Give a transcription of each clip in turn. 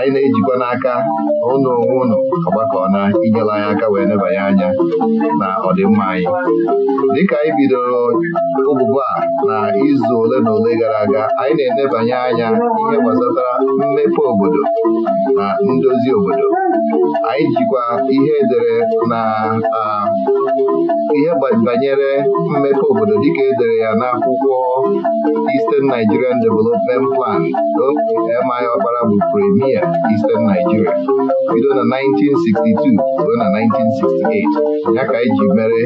anyị na-ejikwa n'aka ụnụ onwe ụnụ ọgbakọ na inyere anyị aka wee nebanye anya na ọdịmma anyị dịka anyị bidoro ụbụbụ a na izu ole na ole gara aga anyị na-enebanye anya ihe gbasatara mmepe obodo na ndozi obodo anyị jikwa ihe edere na ihe banyere mmepe obodo dịka edere ya n'akwụkwọ Eastern Nigerian Development Plan M.I. Okpara bụ premier Eastern Nigeria bido na 1962 ruo na 1968 ya ka anyị e mere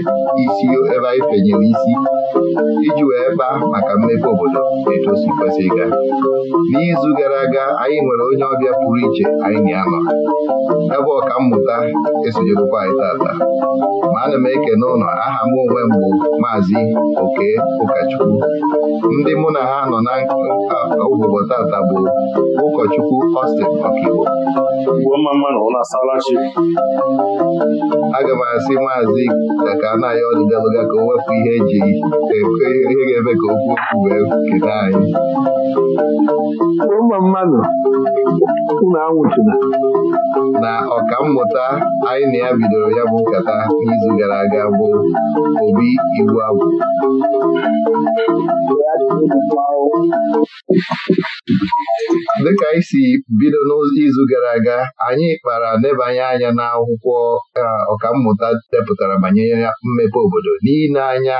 isi ebe anyị fenyere isi iji wee baa maka mmepe obodo etu o si kwesị ịga n'izu gara aga anyị nwere onye ọbịa pụrụ iche anyị na anọ. ebe ọka mmụta esonyekwa anyị tata ma ana m eke n'ụlọ aha m onwe m bụ maazị oke ụkọchukwu ndị mụ na ha nọ na obodo tata bụ ụkọchukwu Austin Ọkigbo aga m asị maazị ka anaghị na ọdịdelụga ka o wepụ ihe eji ihe ga-eme ka okwu okwu wee kede anyị ụmụ mmadụ unu anwụchina na ọka mmụta anyị na ya bidoro ya bụ nkata n'izu gara aga bụ obi iwu abụ dịka anyị si bido n'izu gara aga anyị kpara nebanye anya n'akwụkwọ ọkammụta depụtara banyere mmepe obodo n'ile anya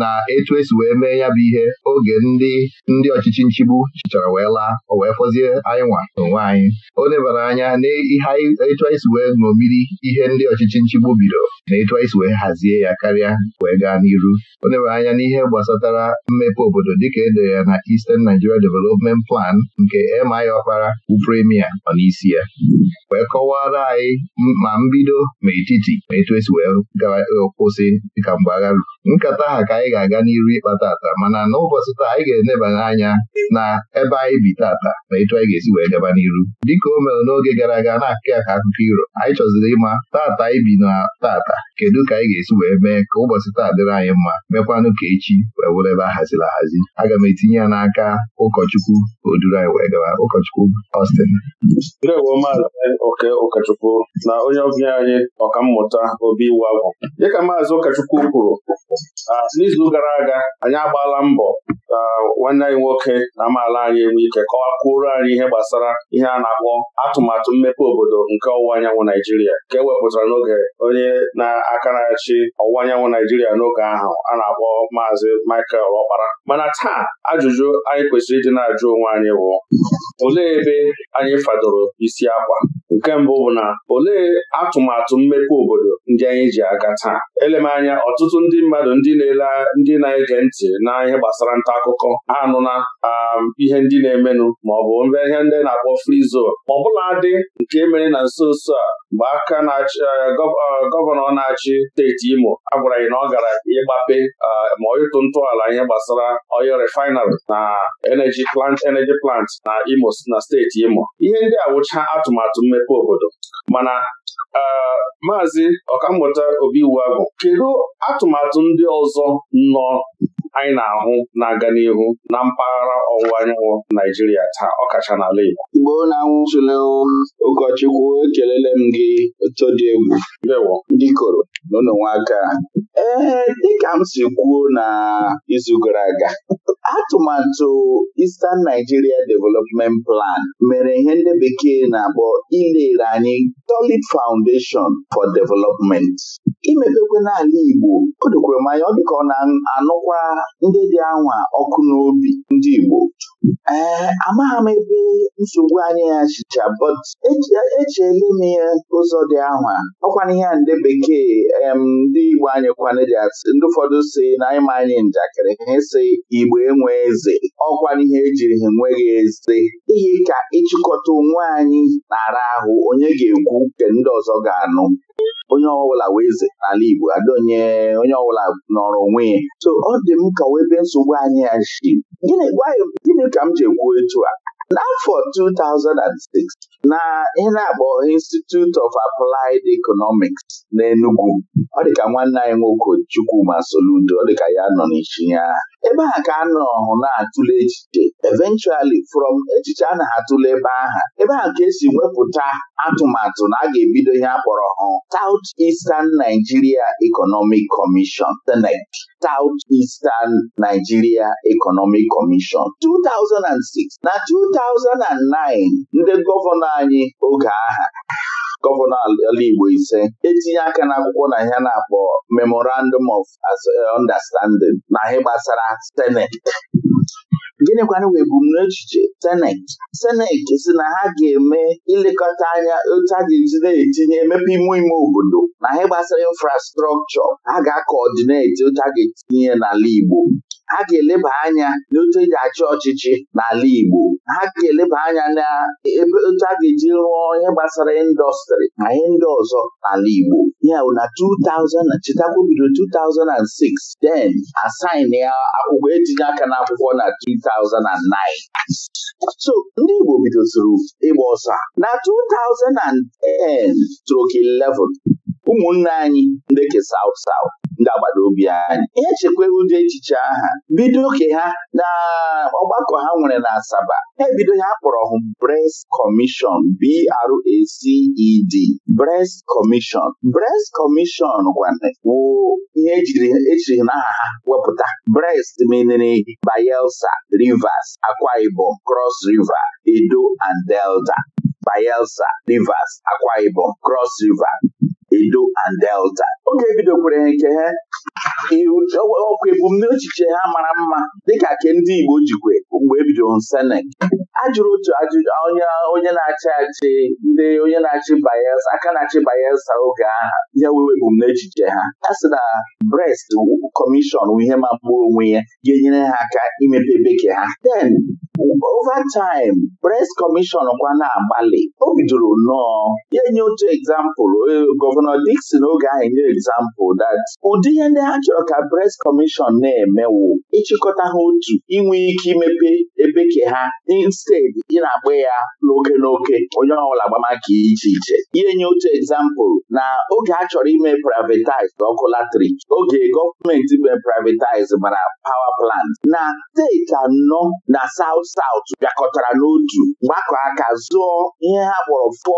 na etu esi wee mee ya bụ ihe oge ndị ndị ọchịchị nchigbu chịchara wee laa o wee fọzie anyị nwa n'onwe anyị o nebara anya n'etu anyị si wee ṅomiri ihe ndị ọchịchị nchigbu bido na etu anyị si wee hazie ya karịa wee gaa n'iru o nebara anya n'ihe gbasatara mmepe obodo dịka edo ya na Eastern Nigeria Development Plan nke MI Ọkpara bụ premier nọ n'isi ya wee kọwara anyị ma mbido ma etiti ma etu esi wee e, kwụsị dịka mgbe agha ruru nkata ha ka anyị ga-aga n'iru ịkpa tata mana n'ụbọchị taa anyị ga-enebanye anya na ebe anyị bi tata na etu anyị ga-esi wee gaba n'iru dịka o mere n'oge gara aga na-akụ ya ka akụkọ iro anyị chọziri ịma tata anyị bi na tata kedu ka anyị ga-esi wee mee ka ụbọchị taa dịrị anyị mma mekwanụ ka echi wee were ebe ahaziri ahazi aga m etinye ya n'aka ụkọchukwu oduru anyị wee gaba ụkọchukwu Austin ụkọchukwu na onye ọbịa anyị ọkammụta obi iwu agwụ dịka maazị ụkọchukwu kwuru Ah, n'izu gara aga anyị agbaala mbọ ka nwanne anyị nwoke na amaala anyị enwe ike kọwakwuoro anyị ihe gbasara ihe a na-akpọ atụmatụ mmepe obodo nke ọwụwa anyanwụ Naijiria nke ewepụtara n'oge onye na-akarachi ọwụwa anyanwụ Naijiria n'oge ahụ a na-akpọ Maazị Michael Ọkpara mana taa ajụjụ anyị kwesịrị ịdị na-ajụ onwe anyị bụ olee ebe anyị fadoro isi akwa nke mbụ bụ na olee atụmatụ mmepe obodo ndị anyị ji aga taa elemanya anya ọtụtụ ndị mmadụ mmadụ ndị na-ele ndị na-ege ntị na ihe gbasara nta akụkọ anụna um, ihe ndị na-emenụ maọbụ mbe ihe ndị na-akpọ free zone ọbụla dị nke mere na nso nso a mgbe aka na-achị uh, uh, gọvanọ na-achị steeti Imo agwara anyị na ọ gara ịgbape uh, ma ịtụ ntọala ihe gbasara oyo refinery na energy plant energy plant na Imo na steeti Imo ihe ndị a wụcha atụmatụ mmepe obodo mana maazị ọkammụta Obi bụ kedu atụmatụ ndị ọzọ nọ anyị na-ahụ na-aga n'ihu na mpaghara ọwụwa anyanwụ Naijiria taa ọkacha n'ala Igbo ọ na-anwụtụle ụkọchukwu ekelele m gị otu dị egwu lewo ndị koro n'ụlọnwaka ee dịka m si kwuo na izu gara aga atụmatụ Eastern Nigeria Development Plan mere ihe ndị bekee na-akpọ ilere anyị solid foundation for development imepekwe n'ala Igbo o dokwere anya ọ dịka ọ na-anụkwa ndị dị anwa ọkụ n'obi ndị Igbo ee amaghị m ebe nsogbu anyị ya chicha but echeela m ya ụzọ dị anwa ọkwana ihe a ndị bekee ndị Igbo anyị kwana dị asị ndị ụfọdụ si na anyị ma anyị njakịrị ha esi Igbo enwe eze ọkwana ihe ejiri ha enweghị eze ihe ka ịchịkọta onwe anyị nara ahụ onye ga-ekwu nke ndị ọzọ ga-anụ onye ọbụla wee eze n'ala Igbo adonye onye ọbụla nọrọ onwe ya so ọ dị m nkọwa ebe nsogbu anyị ya si gịnị ka m ji ekwu etu a N'afọ 2006 na ihe na-akpọ Institute of Applied Economics na Enugu, ọ dịka nwanne anyị nwoke Chukwuma Soludo ọ dịka ya nọ n'isi ya ebe a ka a nọhụ na-atụle echiche eventually from echiche a na-atụle ebe aha ebe a ka esi wepụta atụmatụ na a ga-ebido ihe a kpọrọ South Eastern Nigeria Economic Commission Senate e South Eastern Nigeria Economic Commission 2006 na 2006 2009 ndị gọvanọ anyị oge aha gọvanọ ala Igbo ise etinye aka n'akwụkwọ na ihe na-akpọ Memorandum of Understanding na ihe gbasara Senate gịnịkwanụ wee ebumnuche seneti seneti si na ha ga-eme ilekọta anya otu a na-etinye emepe ime ime obodo na ha gbasara infrastrọkchọ ha ga-akọọdineti otu a etinye n'ala Igbo ha ga-eleba anya n'otu eji achị ọchịchị n'ala Igbo ha ga-eleba anya na otu a ga-eji rụọ ihe gbasara ịndọstrị na ihe ndị ọzọ n'ala Igbo ya bụ na 2000 chetakwa bido 2006 den asain ya akwụkwọ etinye aka n'akwụkwọ na 2009 so ndị Igbo bidozuru ịgba ọsọ na 2010 stroke 11 ụmụnne anyị ndị ke saut ga ndị agbata obi anyị ihe chekwa ụdị echiche aha bido oke ha na ọgbakọ ha nwere na Asaba ebido ha kpọrọ hụ Brest Commission BRACED Brest Commission Brest Commission gwawụ ihe ejiri ejiri n'aha ha wepụta Brest menere Bayelsa Rivers Akwa Ibom Cross River Edo and Delta Bayelsa Rivers Akwa Ibom Cross River Edo and Delta oge ebido ha nke ha ọkwa ebumnuche ha mara mma dịka ke ndị Igbo jikwe mgbe ebidoro Senek ajụrụ otu ajụjụ onye na-achị achị ndị onye na-achị banyesa aka na-achị Bayelsa oge aha ya wee ebumnuche ha Ha sị na Brest kọmishọn ihe magbuo onwe ya ga-enyere ha aka imepe bekee ha den over time pres kọmishọn kwa na-agbalị o bidoro nnọọ ya nye otu egzampụl e, gọvanọ dikson oge anyị nye egzampụl that ụdị ihe ndị ha chọrọ ka pres kọmishọn na-emewu ịchịkọta ha otu inwe ike imepe ebe ke ha instead ị na-agba ya n'oke n'oke onye ọbụla agbamaka iche iche ihe nye otu egzampụl na oge a chọrọ ime privatized ọkụ latrik oge gọọmenti ime privatized mara power plant na steeti anọ na saut saut bịakọtara n'otu gbakọ aka zụọ ihe ha kpọrọ fọ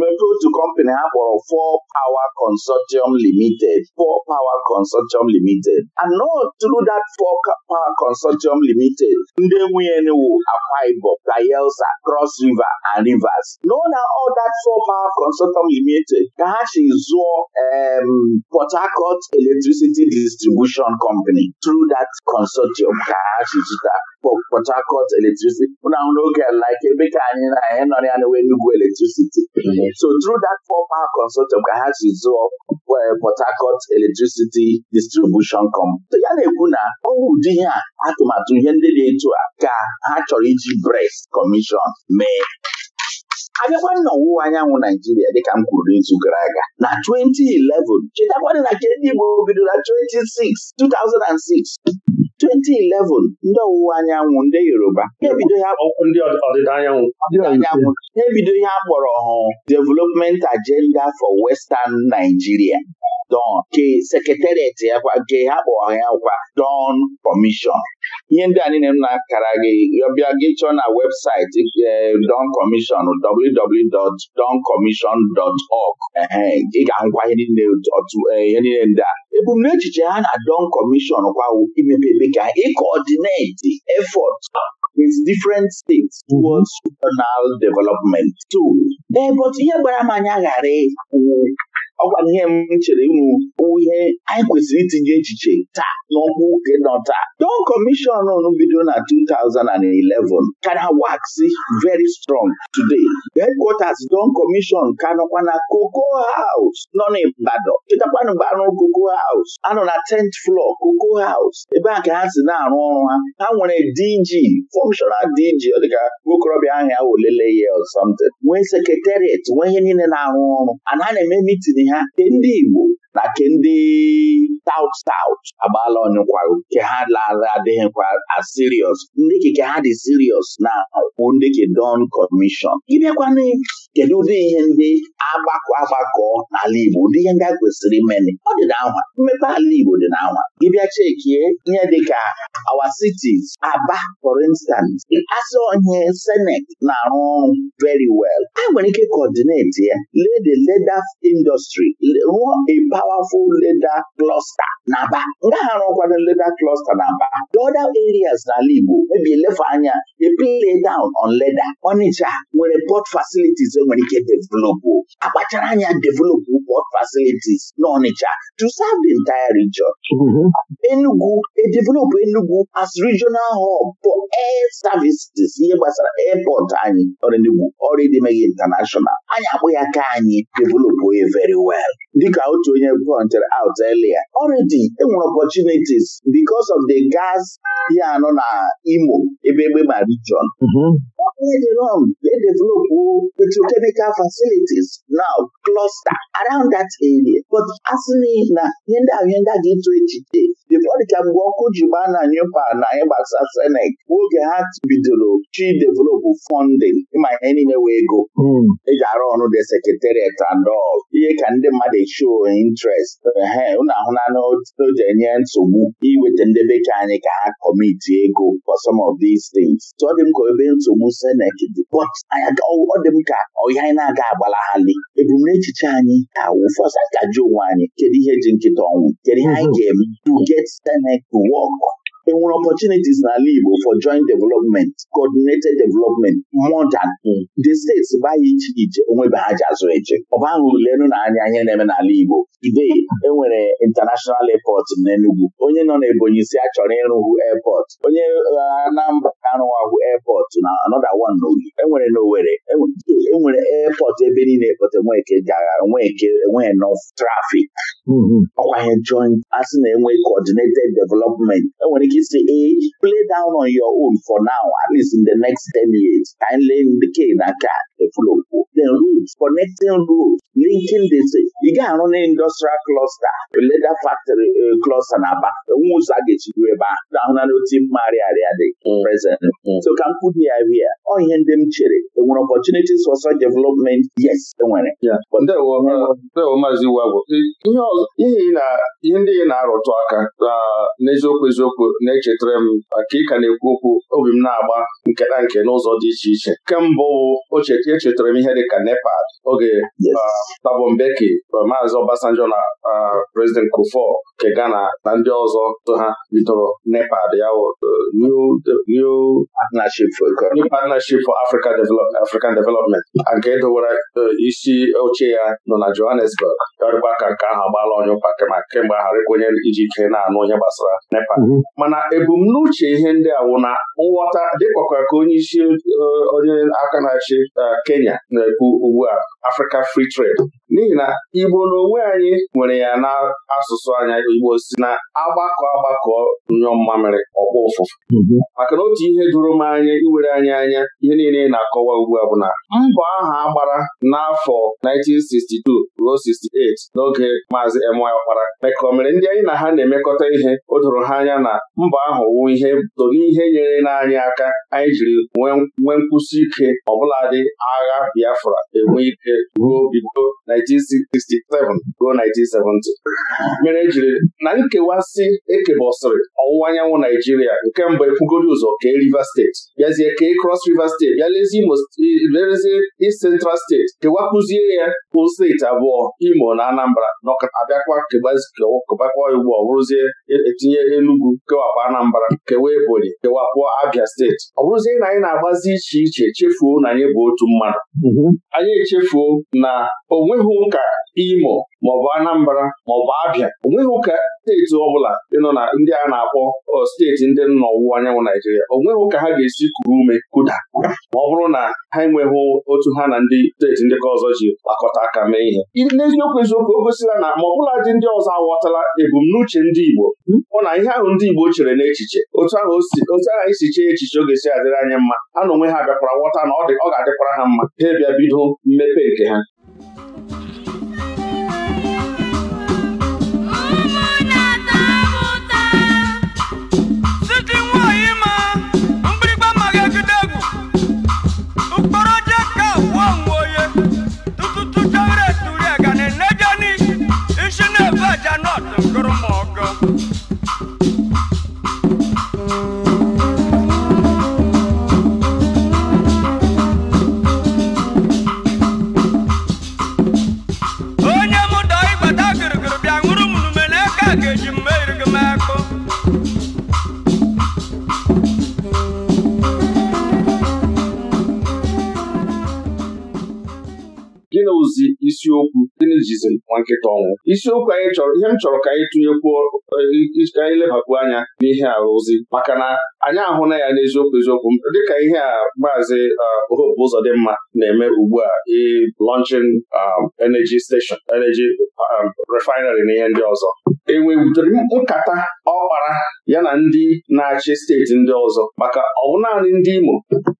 mepe otu kọmpanị ha kpọrọ fọ Power Consortium Limited fọ Power Consortium Limited and not through dat fọ Power Consortium Limited ndị nwunye nwu Akwa Ibom, Bayelsa, Cross River and Rivers no na all that fọ Power Consortium Limited ka ha zụọ Port Harcourt Electricity Distribution Company tru dat consortium ka ha chi zụta Port Harcourt electricity mụ na n'oge oge like ebe ka anyị na anyị nọ ya na Enugu electricity mm-hmm. so through that four power consortium ka ha si zụọ Port Harcourt electricity distribution company ya na-ekwu na ọ bụ ụdị ihe a atụmatụ ihe ndị dị etu a ka ha chọrọ iji BREX Commission mee abịakwa na ọwụwa anyanwụ Naijiria dịka m kwuru n'izu gara aga na 2011 chetakwadị na nke ndị Igbo bidoro na 26 2006 2011 ndị ọwụwa anyanwụ ndị Yoruba ha ebido ihe a kpọrọ ọhụụ Development Agenda for Western Nigeria don ka ya nke ha kpọọ ya gwa don kọmishọn ihe ndị a niile m na-akara gị ọbịa gị chọọ na webụsaịtị eh, don kọmishọn www.doncommission.org ị ga-agwa eh, ihe niile ndị a ebumnuche ha na don kọmishọn kwa imepe ka di efọt with different states mhm. towards regional development. too ee, eh, but ihe gbara m anya ghara ọ gwara ihe m chere unu ihe anyị kwesịrị itinye echiche taa n'ọkwa oke nọ taa don kọmishọn unu bidoro na 2011 kara waxi very strong today headquarters don kọmishọn ka nọkwa na koko haus nọ n'Ibadan chetakwana mgbe anụ koko haus. anọ na tent flo koko haus. ebe a ka ha si na-arụ ọrụ ha ha nwere DG functional DG ọ dịka nwokorobịa ahụ ya welele ya or something nwee sekretariat nwee ihe niile na-arụ ọrụ ana na-eme mitin ahịa ndị Igbo na nke ndị South South agbala ọnyụkwarụ nke ha lara adịghịkwa as serious ndị keke ha dị serious na kwụ ndị ke Don Commission ịbịakwana kedu ụdị ihe ndị agbakọ agbakọ n'ala Igbo ụdị ihe ndị a kwesịrị imeli ọ dị n'anwa mmepe ala Igbo dị n'anwa gịbịa chekie ihe dịka our cities Aba for instance asị onye senate na-arụ ọrụ veri wel. a nwere ike coordinate ya lede the leather industry rụọ a powerful leda cluster na Aba nga ha rụkwara leda cluster na Aba the other areas n'ala Igbo ebi elefe anya e play down on leda onicha nwere port facilities enwere ike developụ akpachara anya developụ port facilities na onicha to serve the entire region mm-hmm. Enugu edevelopụ Enugu as regional hub for air services ihe gbasara airport anyị ọrụ ọrụ international anyị akpụ ya ka anyị developụ very well dịka otu onye ihe pointed out earlier already enwere opportunities bicos of the gas ya anọ na Imo ebe egbe mm-hmm. ma region they develop petrochemical facilities now cluster around that area but asị na ihe ndị ahụ ihe ndị a ga-eto echiche dịka mgbe ọkụ ji gbaa na nyupa na anyị gbasa senek oge ha bidoro chi develop funding ịma ihe niile wee ego mm. eji arụ ọrụ the secretariat and all ihe ka ndị mmadụ show interest he ụnụ ahụna o jere enye nsogbu iweta ndị bekee anyị ka ha kọmiti ego for some of these things so ọ dị m ka ebe nsogbu senet dị but ọ dị m ka ọhịa anyị na-aga agbalaghalị ebumnuche anyị awụ fọsa kaji onwe anyị kedu ihe ji nkịta ọnwụ kedu ihe anyị mhm. ga-eme to get senet to work enwere opportunities n'ala Igbo for joint development coordinated development more than hmm. the states gbaghị iche iche onwebe ha ji azụ eche ọba ahụ lenu na anya ihe na-eme n'ala Igbo today enwere international airport n'Enugwu. onye nọ n'Ebonyi si achọrọ ịrụhụ airport onye Anambra arụwahụ airport na another one n'Ogi enwere n'Owere enwere e airport ebe niile ekpọta Nweke gara Nweke enweghị enough trafik. Hmm, hmm. ọkwa ihe joint asị na enwe coordinated development enwere ike she si play down on your own for now at least in the next 10 years ka anyị lee ndị ke na ka efulokwu the routes connecting routes linking the ị ga-arụ an industrial cluster leather factory cluster na aba enwe ụzọ a ga-echido ebe ahụ na-ahụ na n'otu mmagharị dị present mm. so ka m kwubi ya bịa ọ ihe ndị m chere enwere opportunities for such development yes enwere ndewo were Iwu Agwụ ihe ndị ị na-arụtụ aka n'eziokwu eziokwu na-echetara m maka ịka na-ekwu okwu obi m na-agba nke na nke n'ụzọ dị iche iche nke mbụ echetara e m ihe dịka nepal oge ah, tabombeki maazị Obasanjo na ah, prezident Kufo nke Ghana na ndị ọzọ so ha bidoro nepal ya eh, new partnership for African development nke dowere eh, isi oche ya nọ na Johannesburg ọrịgba ka nke ahụ agbaala onye ụkwa kemgbe ahụ arịkwa onye iji ike na-anụ onye gbasara nepal mm-hmm. mana ebumnuche ihe ndị a wụ na nghọta dịkwakwa ka onye isi eh, onye aka na-achị eh, Kenya na-ekwu ugbu a Africa Free Trade n'ihi na Igbo n'onwe anyị nwere ya na asụsụ anya Igbo si na agbakọ agbakọ nyụọ mmamịrị ọkpọ ụfụfụ mhm. maka na otu ihe doro m anya iwere anyị anya ihe niile na-akọwa ugbu a bụ na mbọ aha agbara n'afọ 1962 ruo 68 n'oge maazị M.Y. Ọkpara mere ndị anyị na ha na-emekọta ihe o doro ha anya na Mba ahụ wụ ihe tolu ihe nyere n'anyị aka anyị jiri nwee nkwụsi ike ọbụladị agha Biafra enwe ike ruo bido 1967 ruo 1970 mere jiri na nkewasị ekebọsịrị ọwụwa anyanwụ Naijiria nke mbụ ekwugoro ụzọ kee Rivers steeti bịazie kee Cross Rivers steeti bịa lezie Imo lezie Central steeti kewapụzie ya bụ steeti abụọ Imo na Anambra nọabịakwa kebakwa ugbu ọ bụrụzie etinye e, Enugu kewa kewapụ Anambra kewa Ebonyi kewapụ abịa steeti ọ bụrụzie na anyị na-agbazi iche iche chefuo na anyị bụ otu mmadụ mhm. anyị echefuo na onweghị ụka Imo maọbụ Anambra maọbụ Abia onweghị ụka steeti ọbụla ịnọ na ndị a na-akpọ steeti ndị nọ n'ọwụwa anyanwụ Naijiria onweghị ụka ha ga-esi kuru ume kuda ma ọ bụrụ na ha enweghị otu ha na ndị steeti ndị ka ọzọ ji gbakọta aka mee ihe n'eziokwu eziokwu o gosila na ma ọ bụla dị ndị ọzọ aghọtala ebumnuche ndị Igbo hụ hmm? na ihe ahụ ndị Igbo chere n'echiche otu ahụ otu isi e chee echiche oge si adịrị anya mma ha na onwe ha bịakwara ghọta na ọ ga-adịkwara ha mma ha bịa bido mmepe nke ha Ghana, Ghana, na-ezi isiokwu gịnịjizi nwa nkịta ọnwụ isiokwu anyị chọrọ ihe m chọrọ ka anyị tụnyekwuo eh, ka anyị lebapụ anya n'ihe ozi maka na anyị ahụna ya n'eziokwu eziokwu dịka ihe a maazị eh, dị mma na-eme ugbu a launching um, energy station energy um, refinery na ihe ndị ọzọ enwebudori nkata ọkpara ya na ndị na-achị steeti ndị ọzọ maka ọwụ naanị ndị Imo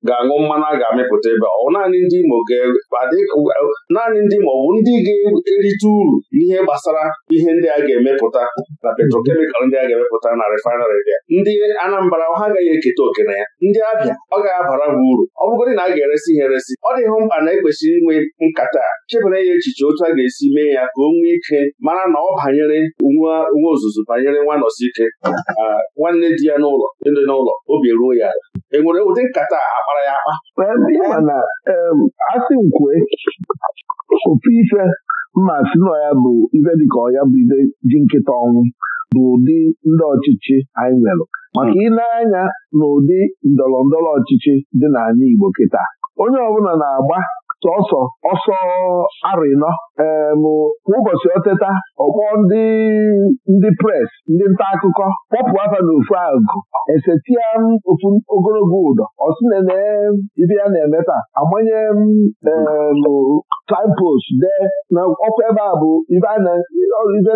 ga-aṅụ mmanụ a ga-amịpụta ebe ọwụ naanị ndị Imo ga-adị naanị ndị maọbụ ndị ga-erite uru n'ihe gbasara ihe ndị a ga-emepụta na petrochemical ndị a ga-emepụta na refinery bịa ndị Anambra ha agaghị eketa oke na ya ndị Abịa ọ ga-abara m uru ọ bụgodị na a ga-eresi ha eresi ọ dịghị mkpa na ekwesịrị inwe nkata chebara ya echiche otu a ga-esi mee ya ka o nwee ike mara na ọ banyere nwa ozuzo banyere nwanọsi ike nwanne di ya n'ụlọ ndị n'ụlọ obi eruo ya ala enwere ụdị nkata a kpara ya akpa ofu ife mma si nọ ya bụ ibe dịka ọya bụ ibe ji nkịta ọnwụ bụ ụdị ndị ọchịchị anyị nwere maka ịna-anya n'ụdị ndọrọ ndọrọ ọchịchị dị n'anya Igbo kịta onye ọbụla na-agba sọsọ ọsọ arịnọ ụbọchị oteta ọkpọ ndị ndị pres ndị nta akụkọ kpọpụ afa n'ofu agụ esetia ofu ogologo ụdọ ọ sị na ibe ya na-emeta amanye signpost dee na ọkwa ebe a bụ ibe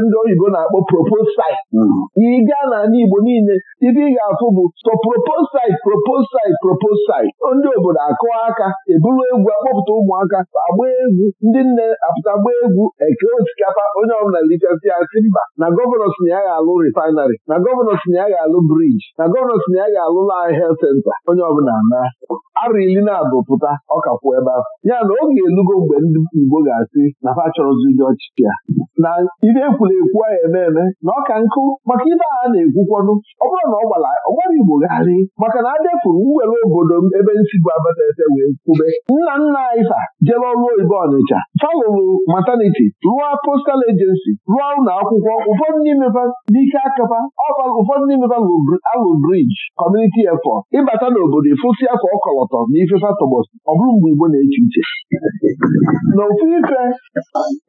ndị oyibo na-akpọ propose site mm-hmm. ị gaa Igbo niile ibe ị ga-afụ bụ so propose site propose ndị obodo akụọ aka eburu egwu akpọpụta ụmụaka agba egwu ndị nne apụta gbaa egwu eke osikapa onye ọbụla lichasị ya sị mba na gọvanọ si ya ga-alụ refinery na gọvanọ si ya ga-alụ briji na gọvanọ si ya ga-alụ lai health senta onye ọbụla na arụ ili na abụ pụta ọkakwụ ebe ahụ ya na oge elugo mgbe ndị Igbo ga-asị na fa chọrọzi ụdị ọchịchị ya na ibe ekwuru a eme eme na ọka nkụ maka ibe a na-ekwukwanụ ọ bụrụ na ọ gbara ọgbara Igbo gharị maka na a defuru mwere obodo m ebe nsi bụ abatase wee kwube nna nna anyị fa jere ọrụ oyibo Ọnịcha fa mataniti rụọ postal ejensi rụọ ụlọ akwụkwọ ụfọdụ n'ime fa n'ike akapa ụfọdụ n'ime fa alụ briji kọmuniti efọt ịbata n'obodo ịfụsị afọ ọkọlọtọ na ifefa tọgbọsị ọ bụrụ mgbe Igbo na-eche uche n'ofu ife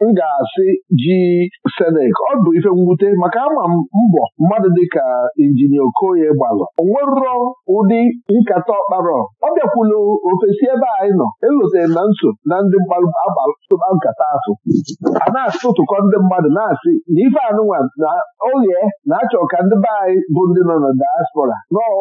m ga-asị ji Senek ọ bụ ife mwute maka ama mbọ mmadụ dịka injinia Okoye gbalụ onwerụrọ ụdị nkata ọkparọ ọ bịakwulu ofesi ebe anyị nọ elotere na nso na ndị mgbalụba nkata asụ a na-asụtụkọ ndị mmadụ na-asị na ife anụnwa na oye na-achọ ka ndị be anyị bụ ndị nọ na diaspora nọọ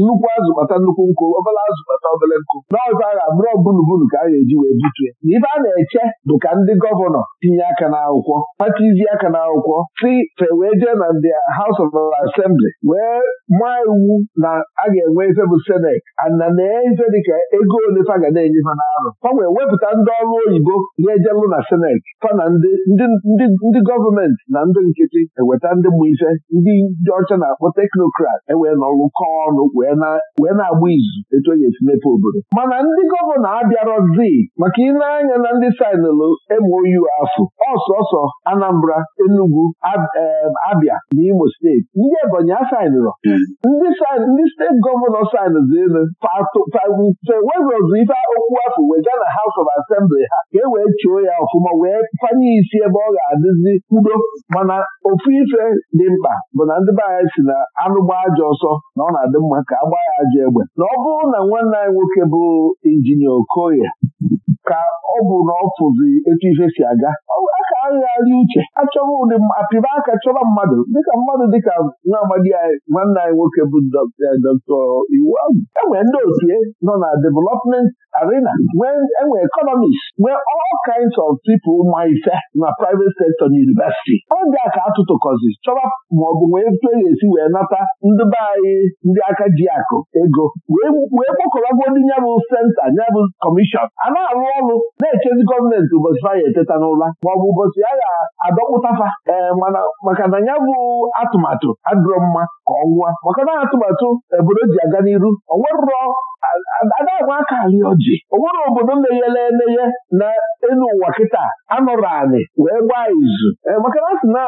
nnukwu azụ kpata nnukwu nkụ obere azụ kpata obele nkụ n'ọzọ agha bụrụ bulubulu ka a ga-eji wee butue na ibe a na-eche bụ ka ndị gọvanọ tinye aka n'akwụkwọ patizie aka n'akwụkwọ si fe wee jee na ndị haus of asembli wee maa iwu na a ga-enwe ife bụ seneti ana na-efe dịka ego ole fa ga na-enye fa n'arụ fa wepụta ndị ọrụ oyibo na-ejelụ na senet, fa na ndị gọọmenti na ndị nkịtị eweta ndị mụ ife ndị dị ọcha na-akpọ teknokrat ewee nọrụkọ ọnụ wee na-agba izu etu onye esi mepe obodo mana ndị gọvanọ abịarọghị z maka ile anya na ndị sainụlụ MOU afọ, ọsọsọ Anambra Enugwu, eh, Abia na Imo steeti ndị Ebonyi asainụrọ hmm. ndị steeti gọvanọ sainụzi elu fewezụzụ ife okwu afọ wega na haus of asembli ha ka e wee chuo ya ọfụma wee fanye isi ebe ọ ga-adịzi udo mana ofu ife dị mkpa bụ na ndị be si na anụgba ajọ ọsọ na ọ na-adị mma ka a gbaa ya ajọ egbe na ọ bụrụ na nwanne anyị nwoke bụ injinia Okoye ka ọ bụ na ọ fụzi etu ife si aga aka agharị uche achọrọ ụdị apịba aka chọrọ mmadụ dịka mmadụ dịka nwa amadi anyị nwanne anyị nwoke bụ dọkịta e, iwu ahụ enwere ndị otu nọ na development arena enwe e economist nwee all kinds of people ma ife na private sector na university oge a ka atụtụkọzi chọrọ maọbụ wee etu e ga-esi wee nata ndị be anyị ndị aka ji akụ ego wee kpọkọrọgwo ndị ya senta ya kọmishọn a na-arụ ọrụ na-echezi gọọmenti ụbọchị ha ya eteta ọ maọbụ ụbọchị ya ga-adọkpụtafa ee mana maka na ya bụ atụmatụ adịrọ mma ọnwa maka na atụmatụ obodo ji aga n'iru onwerụrọ adagwa aka ali ọjị onwere obodo meghere emeghe na elu ụwa kịta anọrọ anị wee gbaa izu eh, maka na sị na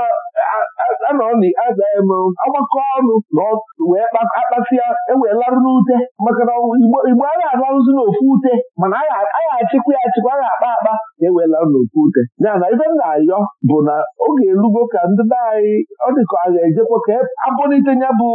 agbakọ ọnụ wee akpasịa eweelarụ n'ute maka na igbo agha arụzi n'ofu ute mana agha achịkwa ya achịkwa agha akpa akpa ewela n'oke ute ya na ibe m na-ayọ bụ na oge elugo ka ndị be anyị ọ dịka a ga-ejekwa ka e abụlite ya bụ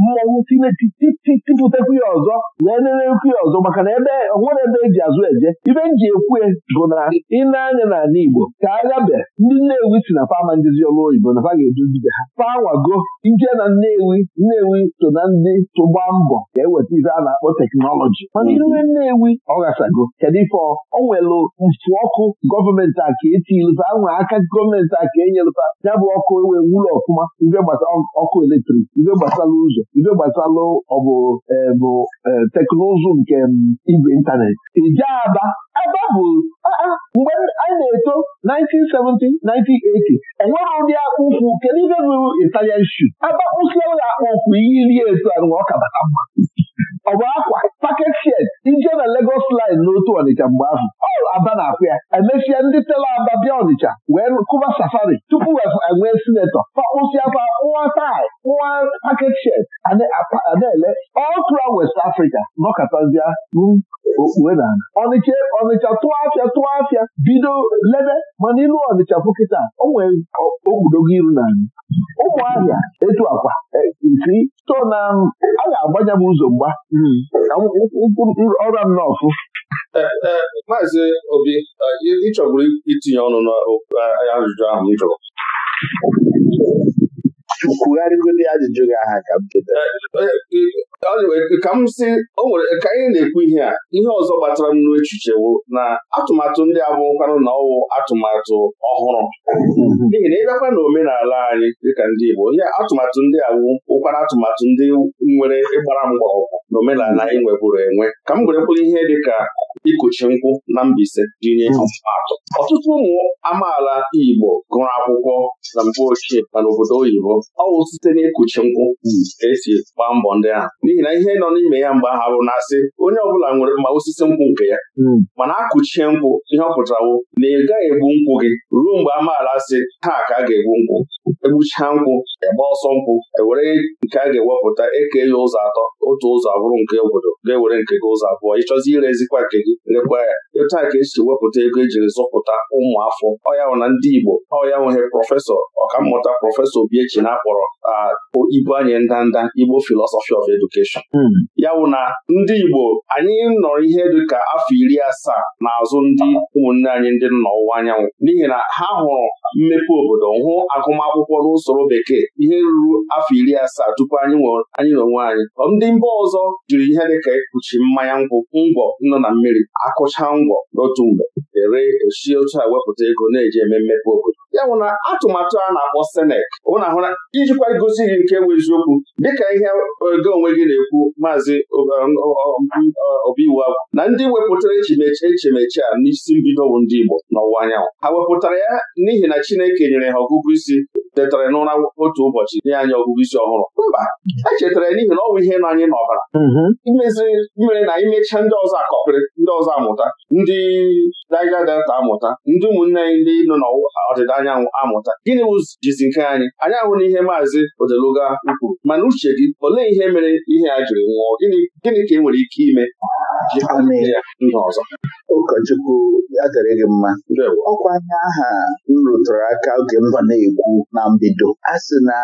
mmọnwụ tipụtakwu ya ọzọ wee nerekwu ya ọzọ maka na ebe onwere ebe eji azụ eje ibe m ji ekwu e bụ na ịna anya n'ala Igbo ka agha be ndị Nnewi si na fama ndịzi ọrụ oyibo na fa ga-eduzibe ha fawago ije na Nnewi Nnewi so na ndị tụgba mbọ ka eweta ife a na-akpọ teknọlọji mana iwe Nnewi ọ ghasago kedu ife ọ nwere mfu ọkụ gọọmenti a ka etilụta anwa aka gọọmenti a ka enyelụta ya bụ ọkụ enwee wụlọ ọfụma ibe gbasara ọkụ eletrik ibe gbasara ụzọ ibe gbasara ọbụ bụ e, e, teknụzụ nke igwe ịntanetị ije aba aba bụ mgbe anyị na-eto 1970 1980 enwere ụdị ụkwụ kedu ibe bụ Italian shoe ụlọ akpụ ụkwụ iyi iri etu anụ ọka bata mma ọ bụ akwa paket shed ije na Lagos line n'otu Ọnịcha mgbe ahụ ọrụ aba na-akwụ ya emesịa ndị tela aba bịa Ọnịcha wee kụba safari tupu enwee e sinetọ pakpụsịakwa nwa tai nwa paket shed na ele ọ throughout West Africa a. na ọnịcha ọnịcha tụọ afịa tụọ afịa bido lebe mana ịlụ ọnịcha pụ kịta o nwere iru na anyị ụmụahịa etu akwa e, isi to na um, a ga-agbanye m ụzọ mgba hmm. ka ọra m n'ọfụ e, e, Maazị Obi ịchọburu itinye ọnụ n'ajụjụ ahụ m kwugharịgodi ajụjụ gị aha ka m eh, eh, ka m si ka anyị na-ekwu ihe a ihe ọzọ gbatara m wụ na atụmatụ ndị abụkwanụ na ọwụ atụmatụ ọhụrụ n'ihi na ịbịakwa na omenala anyị dịka ndị Igbo ihe atụmatụ ndị awụ ụkwara atụmatụ ndị nwere ịgbara mgbọrọgwụ na omenala anyị nweburu enwe ka m were ihe dịka ikuchi nkwụ na Mbaise jinye hmm. atụ ọtụtụ ụmụ amaala Igbo gụrụ akwụkwọ na mgbe ochie ma n'obodo oyibo ọ bụ site n'ikuchi nkwụ hmm. esi gbaa mbọ ndị ahụ n'ihi na ihe nọ n'ime ya mgbe ahụ na-asị onye ọbụla nwere ma osisi nkwụ nke ya hmm. mana akụchie nkwụ ihe ọ pụtarawo na ị gaghị egbu nkwụ gị ruo mgbe amaala sị ha ka a ga-egbu nkwụ egbuchaa nkwụ ebe ọsọ nkwụ ewere nke a ga-ewepụta eke ya ụzọ atọ otu ụzọ abụrụ nke obodo ga-ewere nke gị ụzọ abụọ ịchọzi irezikwa nke gị lekwa ya etu ka esi wepụta ego ejiri zụpụta ụmụafọ ọyanwụ na ndị Igbo ọyanwụghị prọfesọ ọkammụta prọfesọ Obiechi na-akpọrọ ibu anyị ndanda Igbo philosophy of education hmm. ya wụ na ndị Igbo anyị nọrọ ihe dịka afọ iri asaa n'azụ ndị ụmụnne anyị ndị nọ ọwụwa anyanwụ n'ihi na ha hụrụ mmepe obodo hụ agụmakwụkwọ n'usoro bekee ihe ruru afọ iri asaa tupu anyị anyị na onwe anyị ndị mba ọzọ jiri ihe dịka ekpuchi mmanya nkwụ ngwọ nọ na mmiri akụcha ngwọ n'otu mgbe ere esi otu a wepụta ego na-eji eme mmepe obodo ya bụ na atụmatụ a na-akpọ senek ụna ahụ na ijikwa gosi gị nke bụ eziokwu dịka ihe ego onwe gị na-ekwu maazị obiwu agwụ na ndị wepụtara echimechi a n'isi mbido bụ ndị Igbo n'ọwụwa anyanwụ ha wepụtara ya n'ihi na Chineke nyere ha ọgụgụ isi chetara n'ụra otu ụbọchị nye anyị ọgụgụ isi ọhụrụ mba echetara chetara n'ihi na ọ bụ ihe nọ anyị n'ọbara mm-hmm. imeziri mere na imechaa ndị ọzọ akọpịrị ndị ọzọ amụta ndị Niger Delta amụta ndị ụmụnne anyị ndị nọ n'ọdịda anyanwụ amụta gịnị jizi nke anyị anyị ahụ na ihe maazị Odeluga kwuru mana uche gị olee ihe mere ihe a jiri nwụọ gịnị ka e nwere ike ime ọzọ ụkọchukwu adịrị mma ọkwa anya aha m rụtụrụ aka oge m na mbido a sị na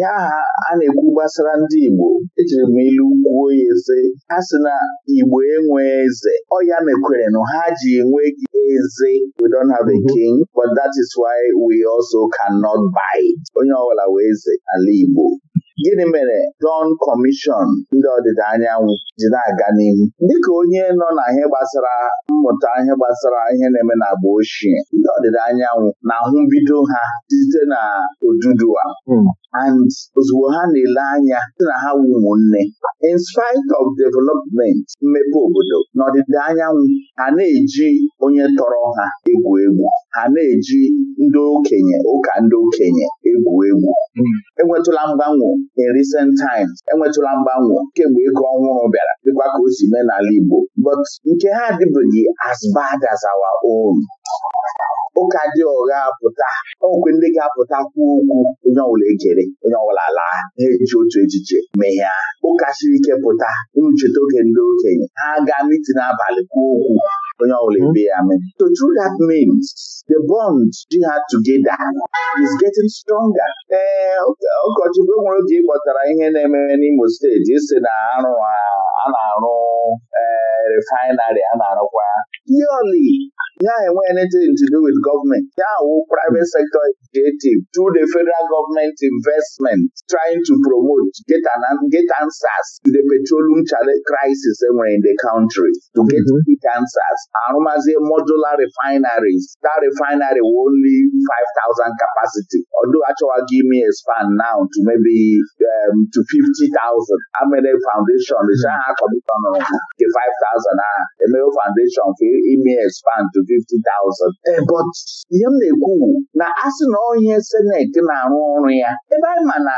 ya aha a na-ekwu gbasara ndị Igbo ejiri m ilu kwuo ya eze a sị na Igbo enwe eze ọ ya mekwere na ha ji enweghị eze we don't have a mhm. king but that is why we also cannot buy onye ọbụla wee eze ala Igbo gịnị mere Don Commission ndị ọdịda anyanwụ ji na-aga n'ihu dịka onye nọ na ihe gbasara mmụta ihe gbasara ihe na-eme na agba ochie ndị ọdịda anyanwụ na mbido ha site na a. Hmm. and ozugbo ha na-ele anya sị na ha wu ụmụnne in spite of development mmepe obodo n'ọdịda anyanwụ ha na-eji onye tọrọ ha egwu egwu ha na-eji ndị okenye ụka ndị okenye egwu egwu hmm. enwetụla mgbanwe in recent times enwetụla mgbanwe kemgbe ego ọhụrụ bịara dịkwa ka o si mee n'ala Igbo but nke ha adịbeghị as bad as our own ụka dị ụgha pụta okwe ndị ga-apụta kwuo okwu onye ọbụla ejere onye ọbụla laa na-eji otu echiche mehia ụka siri ike pụta unu oge ndị okenye ha gaa mitin abalị kwuo okwu onye ọbụla ebe ya mee so through that means the bond ji ha together is getting stronger ee ụkọchukwu nwere oge ịkpọtara ihe na-eme n'Imo steeti isi na arụ a na-arụ refinarị a na-arụkwa purely ya enwe anything to do with government ya wụ private sector executive through the federal government investment trying to promote get, an, get answers to the petroleum crisis enwere in the country to get mm-hmm. quick answers arụmazie modular refineries that refinery with only 5,000 capacity ọdụ achọwaghị ime expand now to maybe um, to 50,000 amere foundation mm-hmm. ha akọdịtọnụrụ nke 5,000 ahụ emewe foundation for ime expand to 150,000 eh, but ihe m na-ekwu na na asị na onye seneti na-arụ ọrụ ya ebe anyị ma na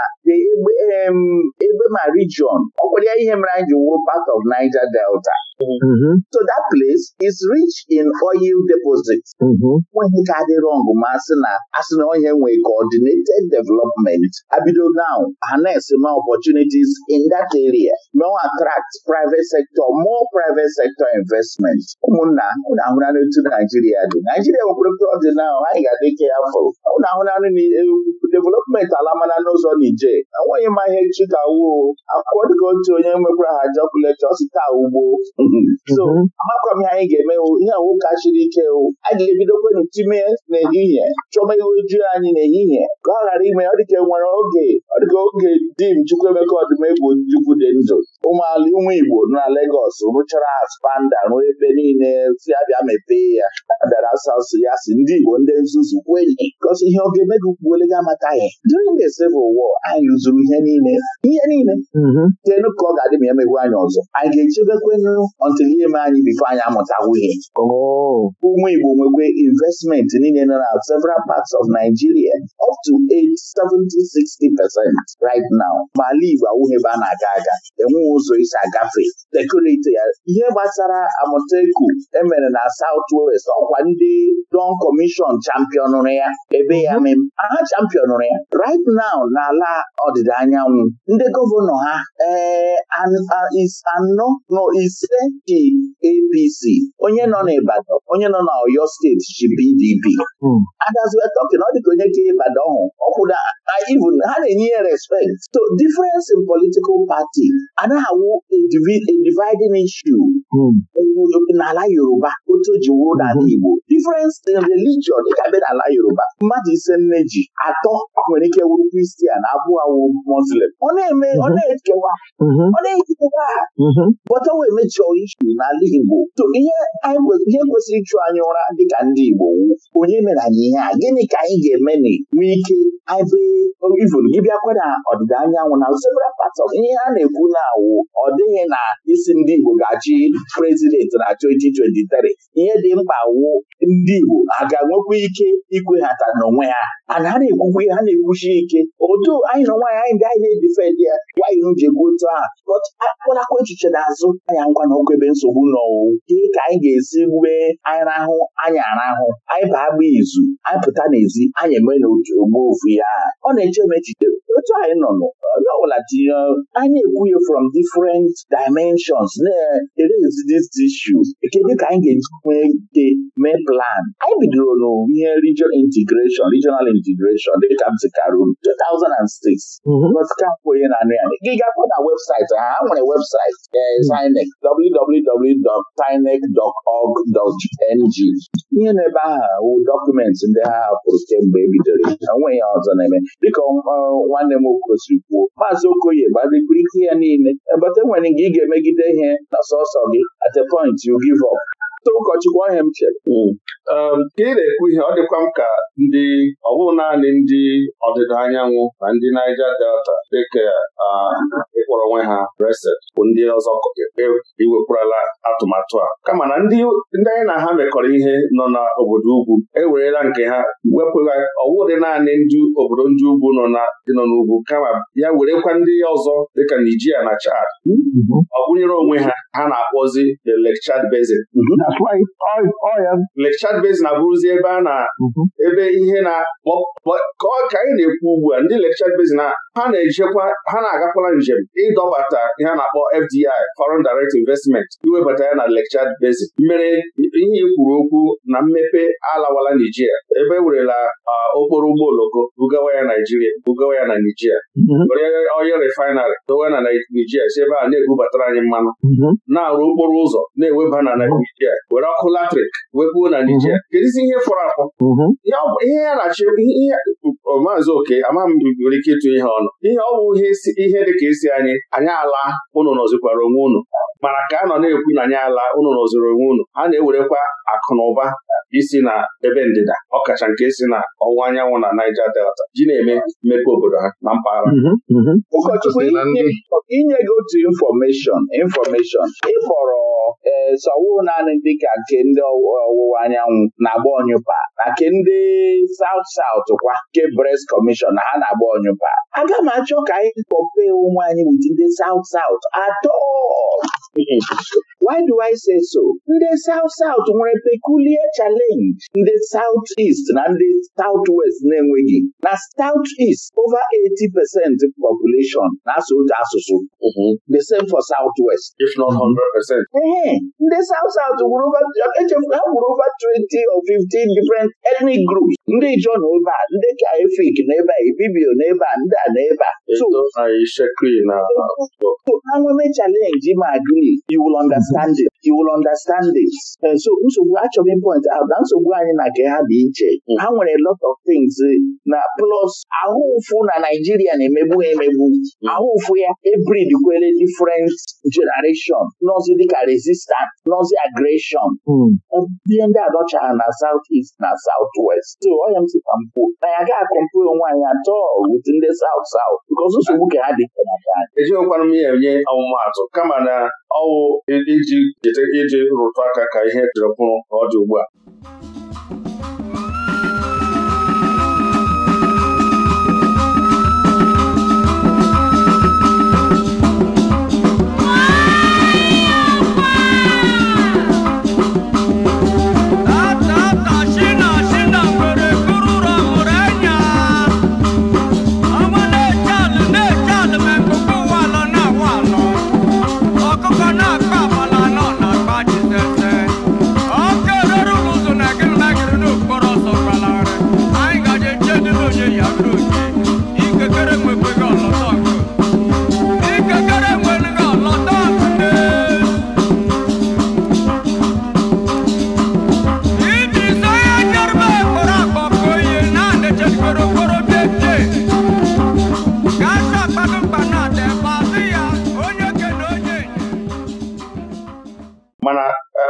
ebe ma region ọ kwere ya ihe mere anyị ji wụrụ part of Niger Delta mm So that place is rich in oil deposits. Mm-hmm. nweghị ka dị rọng ma asị na asị na onye nwee coordinated development abido now harness opportunities in that area now attract private sector more private sector investment ụmụnna ụnụ ahụnanụ otu Naijiria dị Naijiria nwekwara prọdị na anyị ga-adị ike ya afọ ụnụ ahụnanụ development alamana n'ụzọ Nije enweghị ma ka chikawo akwụkwọ dịka otu onye nwekwara ha jokulet ọsita ugbo so mhm. amakọ m ihe anyị ga-emewu ihe nwoke a chiri ike ewu a ga-ebidokwenu time n'ehihie chọba iwe juu anyị n'ehihie ka ọ ghara ime ọ dịka e nwere oge ọ dịka oge dim Chukwuemeka Ọdịmegwu Ojukwu dị ndụ ụmụala ụmụ Igbo na Legọs rụchara spanda ruo ebe niile si abịa mepee ya abịara sasụ ya si ndị Igbo ndị nzuzu kwenye gosi ihe oge mega ukpuolega amataghị during the Civil War anyị rụzuru ihe niile ihe niile tenu mhm. ka ọ ga-adị ma emegwu anyị ọzọ anyị ga-echebekwenụ ọntụl ihe anyị bifo anyị amụtawo ihe oh. ụmụ Igbo nwekwe investment niile nọ na several parts of Nigeria up to 70-60 percent right now ma ala Igbo awụghị ebe a na-aga aga enweghị ụzọ isi agafe dekorate ya ihe gbasara Amoteku emere na South West ọkwa ndị Don Commission champion ya ebe ya mm-hmm. mem aha champion ya right now n'ala ọdịda anyanwụ ndị gọvanọ ha ee eh, anọ na ise ji APC onye nọ n'Ibadan onye nọ na steeti ji PDP adaziwe tọkin ọ dịka onye ka Ibadan hụ ọkwụna even ha na-enye ya respekt so difference in political party anaghị awụ a dividing issue hmm. n'ala Yoruba otu ji wuo n'ala hmm. Igbo difference in religion dịka be n'ala Yoruba mmadụ ise nne ji atọ nwere ike wuru Kristian abụọ awụ Muslim ọ na-eme ọ hmm. na-ekewa ọ na-ekewa bọta wee isu n'ala Igbo ihe kwesịrị ịchụ anyị ụra dịka ndị Igbo wu onye mere anyị ihe a gịnị ka anyị ga-eme nwee ike um, ivụrụ gị bịakwa na ọdịda anyanwụ na several parts ihe a na-ekwu na-awụ ọ dịghị na isi ndị Igbo ga-achị prezidenti na 2023 ihe dị mkpa wụ ndị Igbo a ga-enwekwa ike ikweghata n'onwe ha a na-ara ekwukwe ha na-ekwuchi ike otu anyị na nwaanyị anyị ndị anyị na-edifendị ya nwaanyị ji egwu otu ahụ akpọlakwa echiche n'azụ anya ngwa na ebe nsogbu n'ọwụ ihe ka anyị ga-esi gbee anyị rahụ anyị arahụ anyị baa agba izu anyị pụta n'ezi anyị eme n'otu ogbo ofu ya ọ na-eche m echiche otu anyị nọ onye ọbụla tinye uh, anyị ekwughị from different dimensions na-erezi these issues kedu ka anyị ga-eji ike mee plan anyị bidoro n'ihe regional integration regional integration dịka m zikara unu 2006 ka kwenye na anụ ya gị gakwa na webụsaịtị ha ha nwere webụsaịtị sinek www.sinek.org.ng ihe n'ebe aha wụ dọkụmentị ndị ha hapụrụ kemgbe ebidoro onwe ya ọzọ na-eme dịka nwanne m okosiri kwuo maazị okoye gbadikirike ya niile ebata enwere gị ị ga-emegide ihe na sọsọ gị at a point you give up too ụkọchukwu ọhịa m chere hmm. um, ka ị na-ekwu ihe ọ dịkwa m ka ndị ọ naanị ndị ọdịda anyanwụ na ndị Naija Delta dịka ịkpọrọ onwe ha reset bụ ndị ọzọ e, iwepụrụla atụmatụ a kama na ndị anyị na ha mekọrọ ihe nọ na obodo ugwu ewerela nke ha ọwụ dị naanị ndị obodo ndị ugwu nọ nọ n'ugwu kama ya werekwa ndị ọzọ dịka Nigeria na Chad ọ gụnyere onwe ha ha na-akpọzi the Lake Chad Basin mhm. oh, oh, Lake Basin abụrụzi ebe a na mhm. ebe ihe na ka anyị na-ekwu ugbu a ndị Lake Chad ha na-ejekwa ha na na-agakwala njem ịdọbata ihe a na-akpọ FDI Foreign Direct Investment iwebata ya na Lekchad basic. mere ihe kwuru okwu na mmepe alawala Nijiria ebe e werela okporo ụgbọ oloko bugawa ya Naijiria bugawa ya na Nijiria mhm. onye refainarị dowe na Nijiria si ebe a na-ebubatara anyị mmanụ mhm. na-arụ okporo ụzọ na-eweba na mhm. Naijiria were ọkụ latrik webuo na Nijiria kedụzi ihe fọrọ afọ ihe ya na-achị maazị oke amaghị m nwere ike ịtụ ihe ọnụ ihe ọ bụ ihe ihe ka isi anyị anyị ala unu nọzikwara onwe unu mana ka a nọ na-ekwu na anyị ala unu nọziri onwe unu a na-ewerekwa akụ na ụba isi na ebe ndịda ọkacha nke si na ọwụwa anyanwụ na Naija Delta ji na-eme mmepe obodo ha na mpaghara mhm, mhm. ụkọchukwu inye gị otu infọmeshọn infọmeshọn ịkpọrọ ee sọwụ naanị dịka nke ndị ọwụwa anyanwụ na-agba ọnyụpa na nke ndị South South kwa nke Brest Commission na ha na-agba ọnyụpa aga m achọ ka anyị ofe onwe oh, anyị wit ndị South South at all. Why do I say so? ndị South South nwere peculiar challenge ndị South East na ndị South West na-enweghị na South East over 80 percent population na-asụ otu asụsụ mm-hmm. the same for South West if not 100 percent. ee ndị South South ha gwuru over 20 or 15 different ethnic groups ndị Ijaw na ebe a ndị Efik na ebe a Ibibio na ebe a ndị a na ebe a Anwame challenge ma agree you will understand it. you will understand this. Uh, so nsogbu achọghị point ahụ na nsogbu anyị na nke ha dị iche mm. ha nwere lot of things eh, na plus ahụ ụfụ na Naijiria na-emegbu emegbu mm. ahụ ụfụ ya ebrid kwele different generation nọzi dịka resistance nọzi aggression ihe mm. ndị adọchara na South East na South West so onye m sikwa mpụ na ya gaghị akọmpu onwe anyị atọ with ndị South South because nsogbu ka ha dị na ejighịkwana m ya enye ọmụmatụ kama na ọwụ iji e-, e-, e-, cheta iji rụtụ aka ka ihe chọrọ bụrụ ka ọ dị ugbu a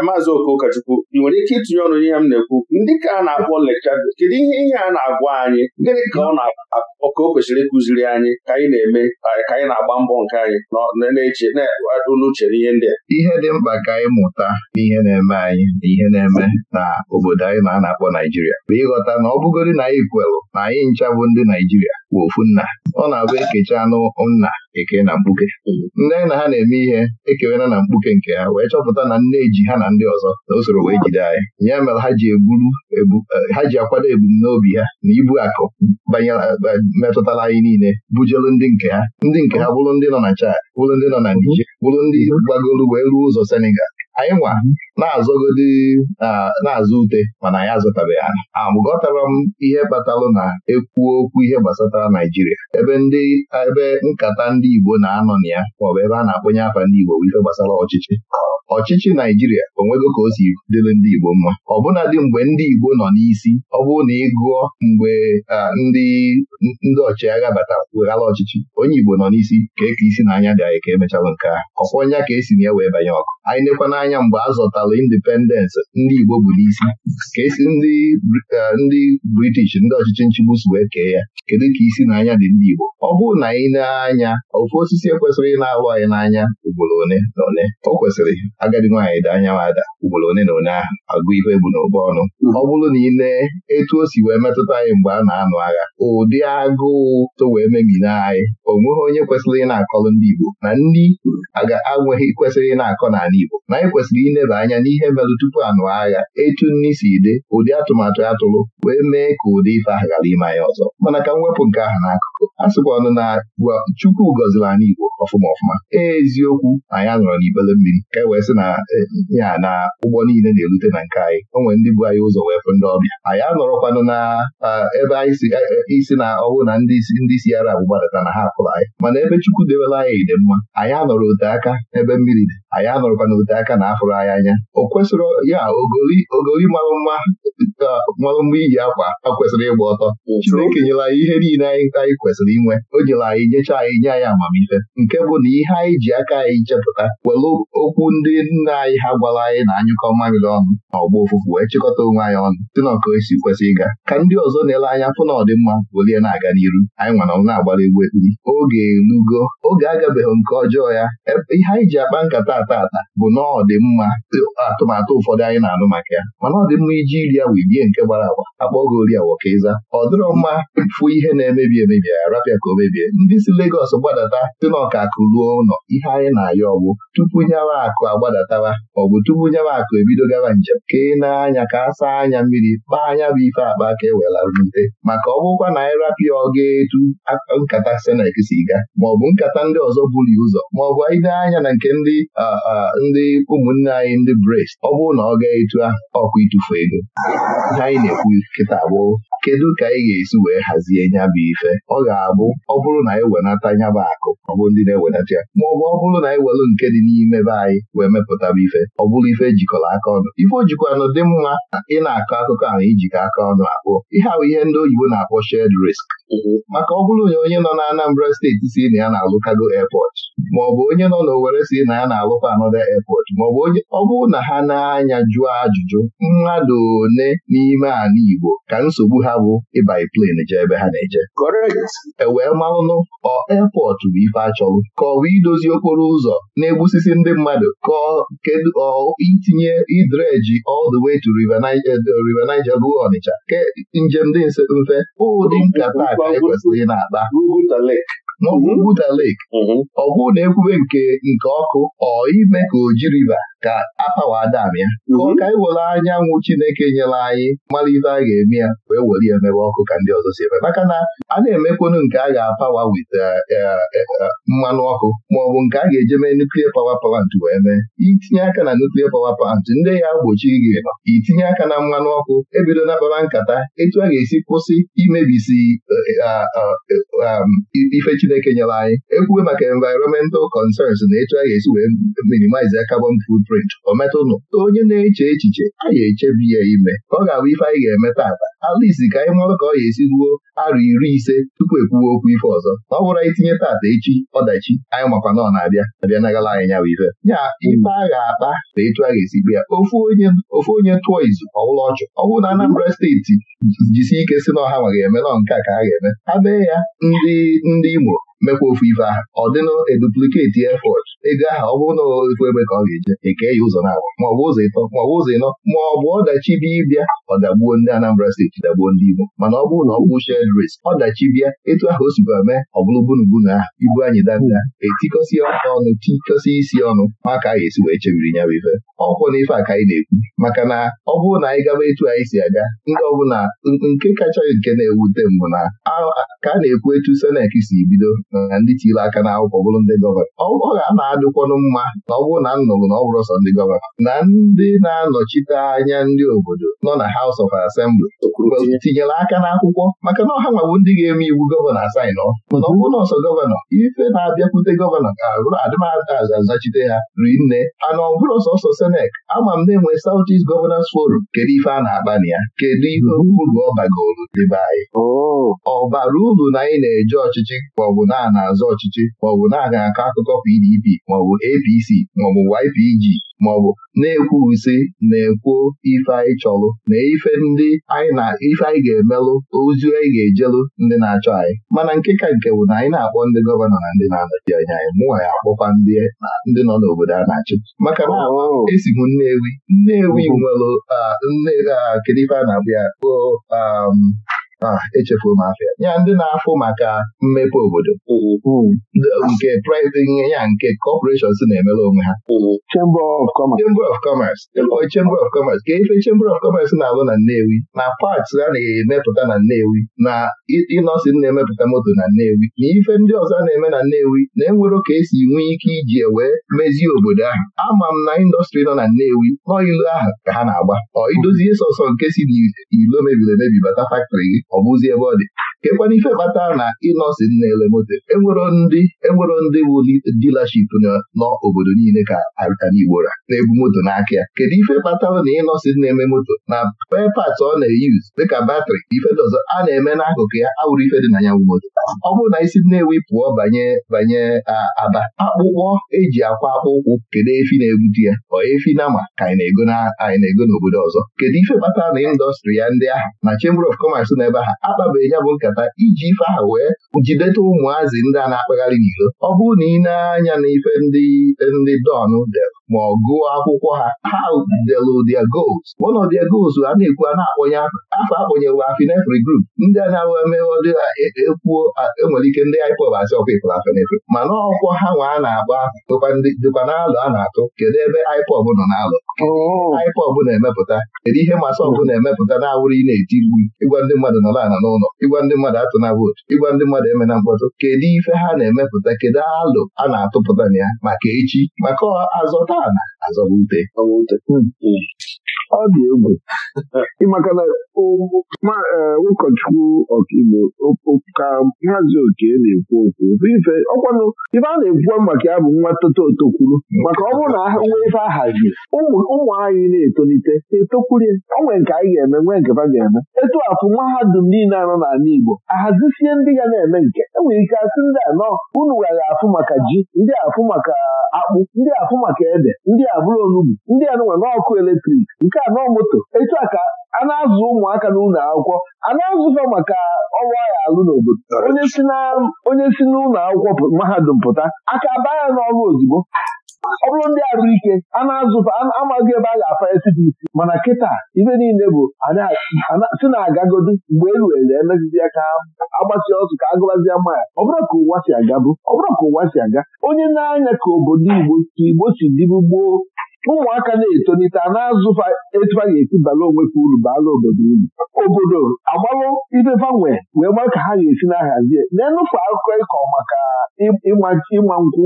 maazị Okokachukwu ị nwere ike itinye ọnụ n'ihe m na-ekwu ndị ka a na-akpọ lekcha kedu ihe ihe a na-agwa anyị gịnị ka ọ na-agwa ka o kwesịrị ịkụziri anyị ka anyị na-eme ka anyị na-agba mbọ nke anyị na-eche na-adụ n'uche n'ihe ndị a ihe dị mkpa ka anyị mụta n'ihe na-eme anyị na ihe na-eme na obodo anyị na a na-akpọ Naijiria bụ ịghọta na ọ bụgorị na anyị kwelụ na anyị ncha bụ ndị Naijiria bụ ofu nna ọ na-abụ ekechi anụ nna eke na mkpuke nne na ha na-eme ihe ekewela na mkpuke nke ha wee chọpụta na nne ji ha na ndị ọzọ na usoro wee jide anyị ya mere ha ji eh, ha ji akwado ebumnobi ha na ibu akụ eh, metụtara anyị niile bujelu ndị nke ha ndị nke ha bụrụ ndị nọ na Chad bụrụ ndị nọ na Niger bụrụ ndị gbagoro wee ruo ụzọ Senegal anyị nwa na-azọgodi na-azụ ute mana anyị azụtabeghị ala amụgọtara m ihe kpatalụ na ekwu okwu ihe gbasatara Naijiria ebe ndị ebe nkata ndị Igbo na-anọ na ya maọbụ ebe a na-akpọnye afa ndị Igbo bụ ife gbasara ọchịchị ọchịchị Naijiria onwego ka o si dịrị ndị Igbo mma ọbụnadị mgbe ndị Igbo nọ n'isi ọ bụrụ na ị gụọ mgbe ndị ndị ọchịagha batara weghala ọchịchị onye Igbo nọ n'isi ka eke isi na anya dị anyị ka emechalụ nke a ọkwọ nya ka esi na ya wee banye ọkụ anyị nekwa anya mgbe a zọtara independence ndị Igbo bụ isi ka esi ndị British ndị ọchịchị nchigbu si wee kee ya kedu ka isi n'anya dị ndị Igbo ọ bụrụ na anyị na-anya ofu osisi ekwesịrị na awụ anyị n'anya ugboro one na one o kwesịrị agadi nwaanyị dị anya ada ugboro one na one ahụ agụ ihe bụ n'okpo ọnụ ọ bụrụ na ị etu o si wee metụta anyị mgbe a na-anụ agha ụdị agụụ to wee memina anyị o nweghị onye kwesịrị ị na-akọrọ ndị Igbo na ndị anweghị kwesịrị ị na-akọ n'ala Igbo na anyị kwesịrị ileba anya n'ihe merụ tupu anụ agha etu nni si ide ụdị atụmatụ atụrụ wee mee ka ụdị ife ahụ ghara ime anyị ọzọ mana ka m wepụ nke ahụ n'akụ a sịkwanụ na Chukwu gọziri anyị Igbo ọfụma ọfụma eziokwu na ya nọrọ n'ibele mmiri ka e wee sị na e, ya na ụgbọ niile na-erute na nke anyị o nwere ndị bụ anyị ụzọ wee fụ ndị ọbịa anyị anọrọkwanụ na ebe anyị e, e, isi na ọwụ na ndị isi ara bụ na ha apụrụ anyị mana ebe Chukwu dewela anyị ide mma anyị anọrọ ote aka ebe mmiri dị anyị anọrọkwana ote aka na afụrụ anyị anya o kwesịrị ya ogoli marụ mma marụ mma iyi akwa a kwesịrị ịgba ọtọ Chineke nyere ihe niile anyị kwesịrị inwe o nyere anyị nyecha anyị nye anyị amamife nke bụ na ihe anyị ji aka anyị chepụta were okwu ndị nna anyị ha gwara anyị na anyụkọ mamịrị ọnụ ma ọgbọ ofufu wee chịkọta onwe anyị ọnụ si na esi kwesị ịga ka ndị ọzọ na-ele anya fụ na ọdịmma welie na-aga n'iru anyị nwere na-agbara egwu ekpiri oge elugo oge agabeghị nke ọjọọ ya e, ihe anyị ji akpa nkata ata ata bụ na ọdịmma atụmatụ ụfọdụ anyị na-anụ maka ya mana ọdịmma iji iri ya wee nke gbara agba akpọ oge ori ịza ọ dịrọ mma fụ ihe na-emebi emebi arapịa ka o mebie ndị si Legọs gbadata si n'ọka akụ ruo ụlọ ihe anyị na-ayọ ọgbụ tupu nyawa akụ agbadataba maọbụ tupu nyawa akụ ebido gaba njem ka ị na-anya ka a saa anya mmiri kpaa anya bụ ife akpa ka e welarute maka ọ bụkwa na anyị ọ ga etu nkata senek si ga maọbụ nkata ndị ọzọ buru ụzọ maọbụ ide anya na nke ndị ndị ụmụnne anyị ndị brest ọ bụrụ na ọ ga etu ahụ itufu ịtụfu ego ihe anyị na-ekwu kịta abụọ kedu ka anyị ga-esi wee hazie nya bụ ife ọ ga-abụ ọ bụrụ na anyị wenata nya bụ akụ ọ bụ ndị na-ewenata ya ma ọ bụ ọ bụrụ na anyị welu nke dị n'ime be anyị wee mepụtaba ife ọ bụrụ ife e jikọrọ aka ọnụ ife ojikwanụ dị mma na ị na-akọ akụkọ ahụ ijikọ aka ọnụ akpụ ihe ahụ ihe ndị oyibo na-akpọ shed risk maka ọ bụrụ na onye nọ na Anambra steeti si na ya na-alụ airpot, maọbụ onye nọ n'Owere si na ya na-alụkwa anọda airport maọbụ onye ọ bụrụ na ha na-anya jụọ ajụjụ mmadụ ole n'ime ala Igbo ka nsogbu ha bụ ịbai plane jee ebe ha na-eje ewee e marụnụ ọ airpot bụ ife achọrụ ka ọ bụ idozi okporo ụzọ na-egbusisi ndị mmadụ ka kedu ọ itinye idreji all the way to eh, River Niger ruo Ọnịcha ke njem dị mfe ụdị nkata ekwesịrị na-ata n'ọgwụ Buda ọ bụrụ na ekwube nke nke ọkụ ọ ime ka o jiriba ka apawa adam ya mhm. ka ọ ka anyanwụ Chineke nyere anyị mara ife a ga-eme ya wee were ya mebe ọkụ ka ndị ọzọ si eme maka na a na-emekwunu nke a ga-apawa wit eh, eh, eh, mmanụ ọkụ maọbụ nke a ga-eje mee nuklia pawa plant wee mee itinye aka na nuklia pawa plant ndị ya gbochi gị nọ itinye aka na mmanụ ọkụ ebido na kpara nkata etu a ga-esi kwụsị imebisi ah, ah, ah, um, ife Chineke nyere anyị ekwuwe maka environmental concerns na etu a ga-esi wee minimize carbon food print o metụnụ onye na-eche echiche anyị echebi ya ime ọ ga-abụ ife anyị ga-eme tata alisi ka anyị nwere ka ọ ga-esi ruo arụ iri ise tupu ekwuwe okwu ife ọzọ na ọ bụrụ anyị tinye tata echi ọdachi anyị makwa na ọ na-abịa abịa nagala anyị nyawa ife nya ife a ga-akpa na etu a ga-esi kpe ya ofu onye tụọ izu ọwụlọ ọchụ ọ bụrụ na Anambra steeti jisi ike si na ọha ma ga-eme nọ nke a ka a ga-eme ha bee ya ndị ndị Imo mekwa ofu ife ahụ ọ dịnụ edupliketi efọt ego ahụ ọ bụrụ na ofu ebe ka ọ ga-eje eke ya ụzọ na-abụ maọbụ ụzọ ịtọ maọbụ ụzọ ịnọ maọbụ ọdachi bịa ịbịa ọ dagbuo ndị Anambra steeti dagbuo ndị Igbo mana ọ bụrụ na ọ bụ shed risk ọdachi bịa etu ahụ o sikwa mee ọ bụrụ bunubunu ahụ ibu anyị dada etikọsi ọnụ tikọsi isi ọnụ maka anyị esi wee chebiri ya bụ ife ọkwụ na ife a ka anyị na-ekwu maka na ọ bụrụ na anyị gaba etu anyị si aga ndị ọbụla nke kacha nke na-ewute mbụ na ka a na-ekwu etu senek si bido na ndị chiri aka n'akwụkwọ bụrụ ndị gọvanọ ọ ga-ana adịkwanụ mma na ọ bụrụ na nnụrụ na ọ bụrụ sọ ndị gọvanọ na ndị na-anọchite anya ndị obodo nọ na House of Assembly tinyere aka n'akwụkwọ maka na ọha nwawo ndị ga-eme iwu gọvanọ asaịnọ mana ọ bụrụ na ọsọ gọvanọ ife na-abịakwute gọvanọ ga-arụ adịmazachite ya ri nne ana ọ bụrụ sọsọ senek ama m na-enwe South East Governors Forum kedu ife a na-akpa na ya kedu ihe uru ọ bagoro dịbe anyị oh. ọ bara uru na anyị na-eje ọchịchị maọbụ na a na-azọ ọchịchị maọbụ na-aga akọ akụkọ PDP maọbụ APC maọbụ YPG maọbụ na-ekwusi na-ekwuo ife anyị chọlụ na ife ndị anyị na ife anyị ga-emelụ ozi anyị ga ejelụ ndị na-achọ anyị mana nke ka nke bụ na anyị na-akpọ ndị gọvanọ na ndị na-anọchi anya anyị mụnwa ya akpọkwa ndị nọ n'obodo a na-achị maka na oh. esi m Nnewi Nnewi oh. nwere kedu ife a na-abụ ya um, Ah, echefuo m afọ ya ndị na-afụ maka mmepe obodo mm-hmm. mm. nke ihe ya nke kọpọreshọn si na-emere onwe ha mm-hmm. Chamber of Commerce Chamber of Commerce mm-hmm. ka ife Chamber of Commerce na-alụ na Nnewi na paks a na-emepụta na Nnewi na ịnọsịn na-emepụta moto na Nnewi na ife ndị ọzọ a na-eme na Nnewi na-enwere ka esi nwee ike iji e wee mezie obodo ahụ ama m na indọstrị nọ na Nnewi nọ ilu ahụ ka ha na-agba ọ idozie sọsọ nke si na ilo mebiri emebi bata faktrị gị ọ bụzi ebe ọ dị kekwana ife kpatara na ịnọsi nna elemoto enwero ndị enwero ndị bụ dilaship n'obodo niile ka Igbo ra na-ebu moto n'aka ya kedu ife kpatara na ịnọsi na-eme moto na pepat ọ na-eyuz dịka batrị ife ọzọ a na-eme n'akụkụ ya awụrụ ife dị na ya moto ọ bụrụ na isi nnewi pụọ banye banye aba akpụkpọ eji akwa akpụkwụ kedu efi na-ebute ya ọ efi na ma ka anyị na-ego n'obodo ọzọ kedu ife kpatara na indọstrị ya ndị ahụ na Chamber of Commerce na ebe ha akpabeghị ya bụ nka iji ife ahụ wee jideta ụmụazị ndị a na-akpagharị n'iro ọ bụrụ na ị na-anya n'ife ndị ndị dọn dere ma ọ gụọ akwụkwọ ha ha delu their goals one of their goals a na-ekwu a na-akpọnye afọ akpọnyewe afinefri group ndị a na-awụ emewodị ekwuo e, enwere ike ndị IPOB asị ọkwa ịpụrụ afinefri mana ọkwọ ha nwa a na-agba dịkwa n'alụ a na-atụ kedu ebe IPOB nọ n'alụ oh. IPOB na-emepụta kedu ihe masị ọbụ na-emepụta na-awụrụ ị na-eti mgbu ịgwa ndị mmadụ nọrọ ala n'ụlọ ịgwa ndị mmadụ atụna vootu ịgwa ndị mmadụ emena mkpọtụ kedu ife ha na-emepụta kedu alụ a na-atụpụta na ya maka echi maka azọta ala azọba hmm. hmm. ọ dị egwu maka na e, ụkọchukwu ọkaigbo ka nhazi oke na-ekwu okwu ife ọkwanụ ife a na-ekwuwa maka ya bụ nwa toto otokwuru maka ọ bụrụ na ha nwee ife ahazi ụmụ anyị na-etolite etokwurie onwe nke anyị ga-eme nwee nke ha ga-eme etu afụ mahadum niile anọ n'ala Igbo ahazisie ndị ga na-eme nke enwere ike asị ndị anọ unu were afụ maka ji ndị afụ maka akpụ ndị afụ maka ede ndị a bụrụ onugbu ndị a ọkụ n'ọkụ eletrik nke a nọ moto etu a ka a na-azụ ụmụaka n'ụlọ akwụkwọ a na-azụfa maka ọrụ agha alụ n'obodo onye si n'ụlọ akwụkwọ mahadum pụta aka baa ya n'ọrụ ozugbo ọ bụrụ ndị arụ ike a amaghị ebe a ga-afa esi isi mana kịta ibe niile bụ si na-agagodu mgbe e elu eruere emezizi aka agbasi ọsụ ka agụbazie ya ọ bụrụ ka ụwa si aga bụ ọ bụrụ ka ụwa si aga onye na-anya ka obodo Igbo Igbo si gboo ụmụaka na-etolite a na-azụfa etu a ga-esi bala ka uru baala obodo uru obodo agbalụ ibebanwe wee ma ka ha ga-esi na-ahazie na-enụfe akụkọ ịkọ maka ịma nkwụ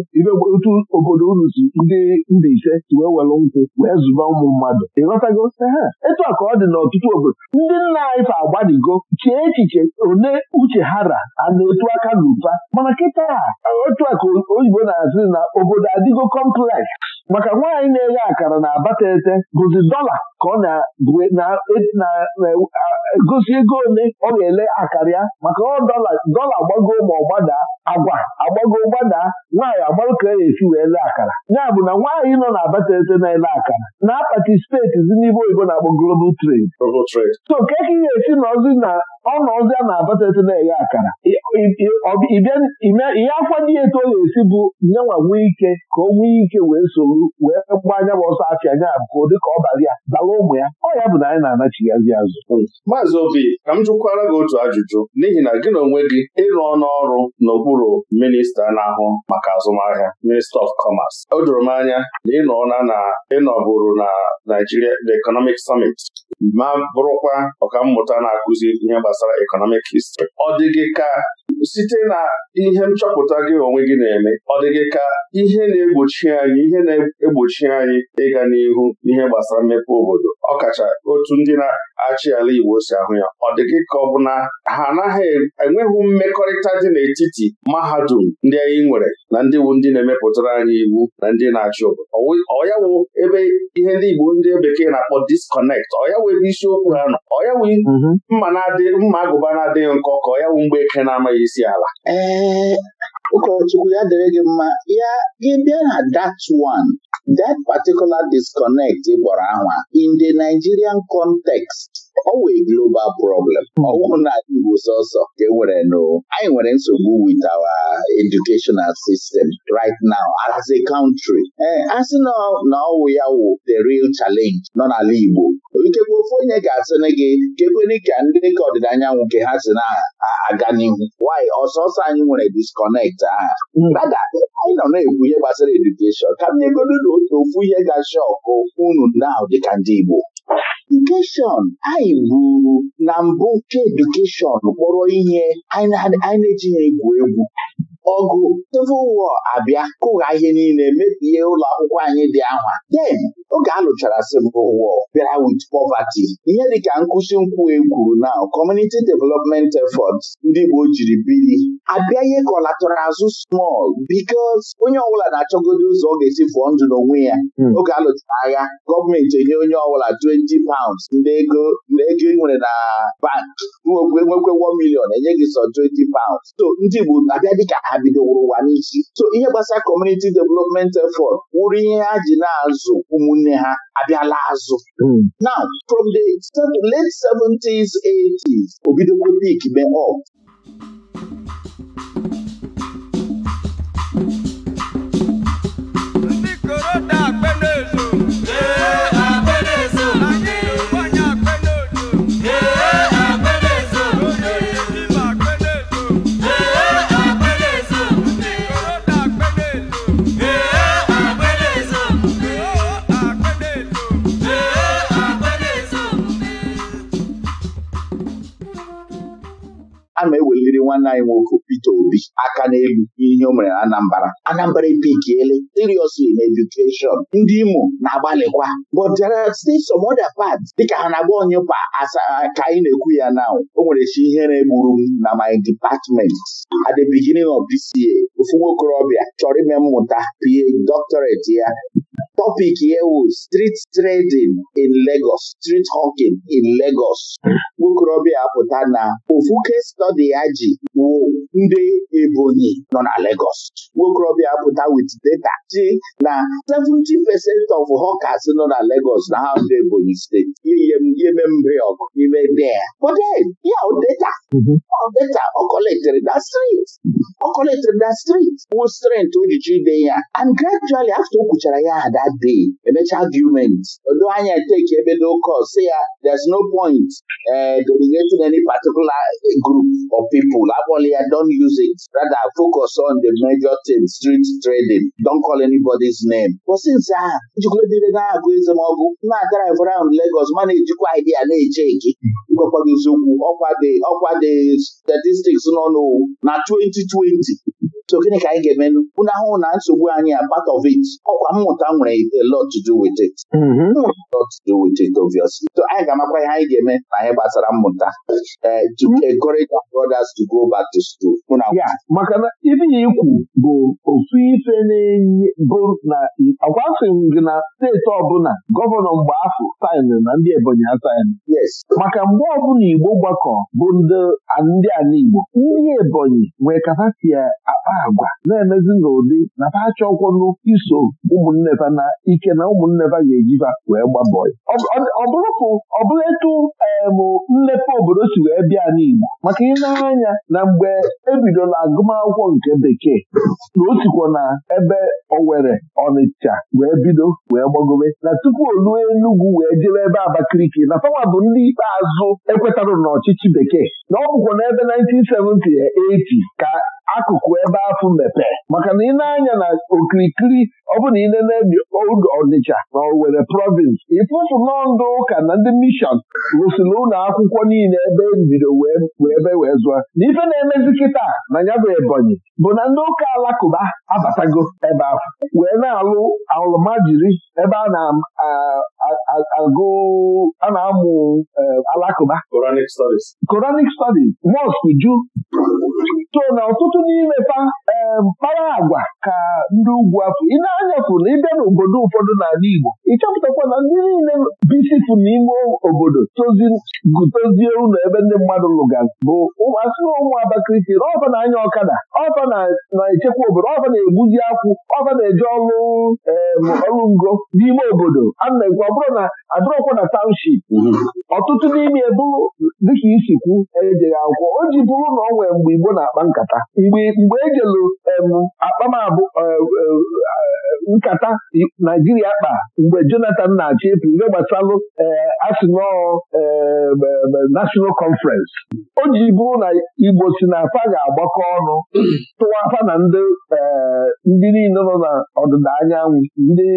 otu obodo uru si ndị ndị ise si wee welụ nkwụ wee zụba ụmụ mmadụ ịghọtago ha etu a ka ọ dị n'ọtụtụ obodo ndị nna Ife fa agbadigo chee echiche one uche ha ra a na-etu aka n'ụba mana kịta otu a ka oyibo na-azụ na obodo adịgo kompleks maka nwaanyị na-eghe akara na abatete bụzi dọla ka ọ na-egosi e- ego ole ọ ga-ele akara ya maka ọ dọla gbagoo ma ọ agwa agbago gbada nwaanyị agbarụ ka ya e esi wee lee akara ya bụ na nwaanyị nọ na abatete na-ele akara na apati steeti dị oyibo na-akpọ global trade so ka e ka esi na na ọnụ ọzọ na-abata ete na-eghe akara ihe afọ dị eto ọ ga-esi bụ nyenwa nwee ike ka o nwee ike wee soro wee gbaa anya bụ ọsọ afịa nya abụko dịka ọ bara ya bala ụmụ ya ọ ya bụ na anyị na-anachighazi azụ maazị obi ka m jụkwara gị otu ajụjụ n'ihi na gị na onwe gị ịrụ ọnụ ọrụ n'okpuru minista na-ahụ maka azụmahịa minista of commerce o doro m anya na ịnọ na ịnọbụrụ na Naijiria the Economic Summit ma bụrụkwa ọkammụta na-akụzi ihe gbasara Economic History. Ọ dị gị ka site na ihe nchọpụta gị onwe gị na-eme ọ dị gị ka ihe na-egbochi anyị ihe na-egbochi anyị ịga n'ihu n'ihe gbasara mmepe obodo ọkacha otu ndị na-achị ala Igbo si ahụ ya ọ dị gị ka ọ bụ na ha anaghị enweghị mmekọrịta dị n'etiti mahadum ndị anyị nwere na ndị bụ ndị na-emepụtara anyị iwu na ndị na-achị obodo ọya wụ ebe ihe ndị Igbo ndị bekee na-akpọ disconnect ọya wụ ebe isiokwu ha nọ ọya wụ mm-hmm. mma na-adị mma agụba na-adịghị nkọ ka ọya wụ mgbe eke na-amaghị isi ee ụkọchukwu ya dere gị mma ya gị bịa na that one that particular disconnect gbọrọ anwa in the Nigerian context ọ global problem hmm. ọ na na Igbo sọsọ ka e nwere nụ anyị nwere nsogbu wit awa educational sistem rit now as a country ee eh, a sị na ọwụ ya wụ the real challenge nọ n'ala Igbo ikekwe ofe onye ga-asịrị gị kekwere ka ndị ka ọdịda anyanwụ nke ha si na-aga n'ihu wanyị ọsọsọ anyị nwere disconnect aha dada hmm. anyị nọ na-ekwu ihe gbasara edukeshọn ka m nyegoro na otu ofu ihe ga ọkụ unu na ahụ dịka ndị Igbo edukeshọn anyị ruru na mbụ nke edukeshọn kpọrọ ihe anyị na-ejighị egwu egwu ọgụ Civil War abịa kụgha ihe niile mebie ụlọ akwụkwọ anyị dị ahwa den oge a lụchara Civil War bịara with poverty ihe dịka nkụsi nkwụ egwuru na Community Development Efforts ndị Igbo jiri bili abịa ihe kọlatọrọ azụ small because onye ọbụla na-achọgodo ụzọ ọ ga-esi fụọ ndụ n'onwe ya hmm. oge a lụchara agha gọọmenti enye onye ọbụla 20 pounds ndị ego ị e nwere na bank nwekwe 1 million enye gị sọ 20 pounds so ndị Igbo abịa dịka ha bidoworo ụwa n'isi so ihe gbasara kọmuniti development effort wụrụ ihe ha ji na-azụ ụmụnne ha abịala azụ hmm. now from the late 70s 80s obidokwa pik mee up nwanne anyị nwoke Peter Obi aka n'elu ihe o mere na Anambra Anambra epikiele seriously na edukeshọn ndị Imo na-agbalịkwa but there are still some other parts dịka ha na-agba onye kwa ka anyị na-ekwu ya na o nwere chi ihere gburu m na my department at the beginning of this year ofu nwokorobịa chọrọ ime mmụta PA doctorate ya topic ya ewu street trading in Lagos street hawking in Lagos nwokorobịa apụta na ofu case study ya ji wụ ndị Ebonyi nọ na Lagos nwokorobịa apụta with data ji na 17 percent of hawkers nọ na Lagos na ha ndị Ebonyi steeti yeme mbe ọgụ n'ime there but then ya data mhm. data ọ collected na street ọ collected na street wụ strength o ji chi ya and gradually after o kwuchara ya ada that emechaa emecha argument odo anya eteki ebe locos si ya there's no point uh, delegating any particular uh, group of people abọla ya don't use it rather focus on the major thing street trading don't call anybody's name But since ahụ njikọta na-agụ ezemọgụ na-adrive round Lagos ma na-ejikwa idea na-eche nke ịgwakwaghị eziokwu ọkwa dị statistics nọ n'owu na 2020 so gịnị ka anyị ga-emenụ unu ahụhụ na nsogbu anyị a part of it ọkwa mmụta nwere a lot to do with it mm-hmm. lot to do with it obviously so anyị ga-amakwa ihe anyị ga-eme na ihe gbasara mmụta eh, to mm-hmm. encourage our brothers to go back to school maka na ife ya ikwu bụ otu ife na-enye bụ na gị na steeti ọbụla gọvanọ mgbe ahụ saịnụ na ndị Ebonyi asaịnụ maka mgbe ọbụla Igbo gbakọ bụ ndị ala Igbo ndị Ebonyi nwee kapasiti akpa agwa na-emezi n'ụdị na fa achọkwọnụ iso ụmụnne na ike na ụmụnne fa ga-ejifa wee gba bọị ọ bụrụ etu emụ mmepe obodo si wee bịa n'igbo maka maka anya na mgbe ebidola agụmakwụkwọ nke bekee na na ebe owe nwere Ọnịcha wee bido wee gbagobe na tupu o ruo Enugwu wee jebe ebe Abakaliki na fawa bụ ndị ikpeazụ ekwetarụ n'ọchịchị bekee na ọ bụkwa n'ebe 1970 80 ka akụkụ ebe afụ mepee maka na ị na-anya na okirikiri ọ bụ na ị na-emebi Ọnịcha na Owerri province ịfụfụ ndụ ụka na ndị mishọn rụsiri ụlọ akwụkwọ niile ebe mbido e wee ebe wee zụọ na ife na-emezi kịta na bụ Ebonyi bụ na ndị ụka alakụba abatago ebe ahụ wee na-alụ alụmajiri ebe a na-agụ a na-amụ eh, alakụba Quranic studies Quranic ju so na ọtụtụ n'ime fa mpaghara eh, agwa ka ndị ugwu afọ ị na wepụ na ịbịa n'obodo ụfọdụ n'ala Igbo ịchọpụtakwa na ndị niile bisifu n'ime obodo togutozie ụlọ ebe ndị mmadụ lụgara bụ asị na ụmụ Abakaliki na ọfa na-anya ọkada ọfa na-echekwa obodo ọfa na-egbuzi akwụ ọfa na-eje ọrụ ọrụ ngo n'ime obodo a na-ekwu ọ bụrụ na adịrọkwa na township ọtụtụ n'ime bụrụ dịka isi kwu ejeghị akwụkwọ o ji bụrụ na ọ nwee mgbe Igbo na-akpa nkata mgbe ejelu e akpamabụ nkata naijiria kpa mgbe jonathan na achọ etu ihe gbasalụ asụnọọ nashọnal kọnferensị o ji bụrụ na igbo si na afa ga-agbakọ ọnụ tụwa afa na ndị eh, ndị niile nọ na ọdịda anyanwụ ndị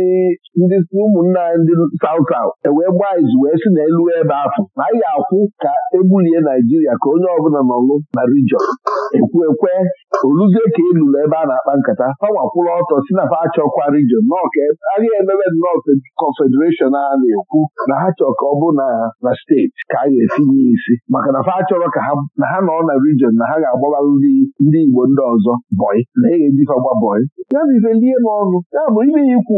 ndị ụmụnna ndị saut saut ewee gbaa izu wee si n'elu ebe afọ na anyị ga-akwụ ka ebulie naijiria ka onye ọbụla nọlụ na rijọn ekwu ekwe oluzie ka elulu ebe a na-akpa nkata fa nwakwụrụ ọtọ si na fa achọkwa ọkwa region e, agaghị emebe nnọọ confederation ha na-ekwu na ha chọrọ ka ọ bụ na steeti ka a ga-etinye isi maka na fa achọrọ ka na ha nọ na rijin na ha ga-agbabalụ ndị Igbo ndị ọzọ bọị na e ga-ejifa bọị ya bụ ife lie n'ọnụ ya bụ ibe ya ikwu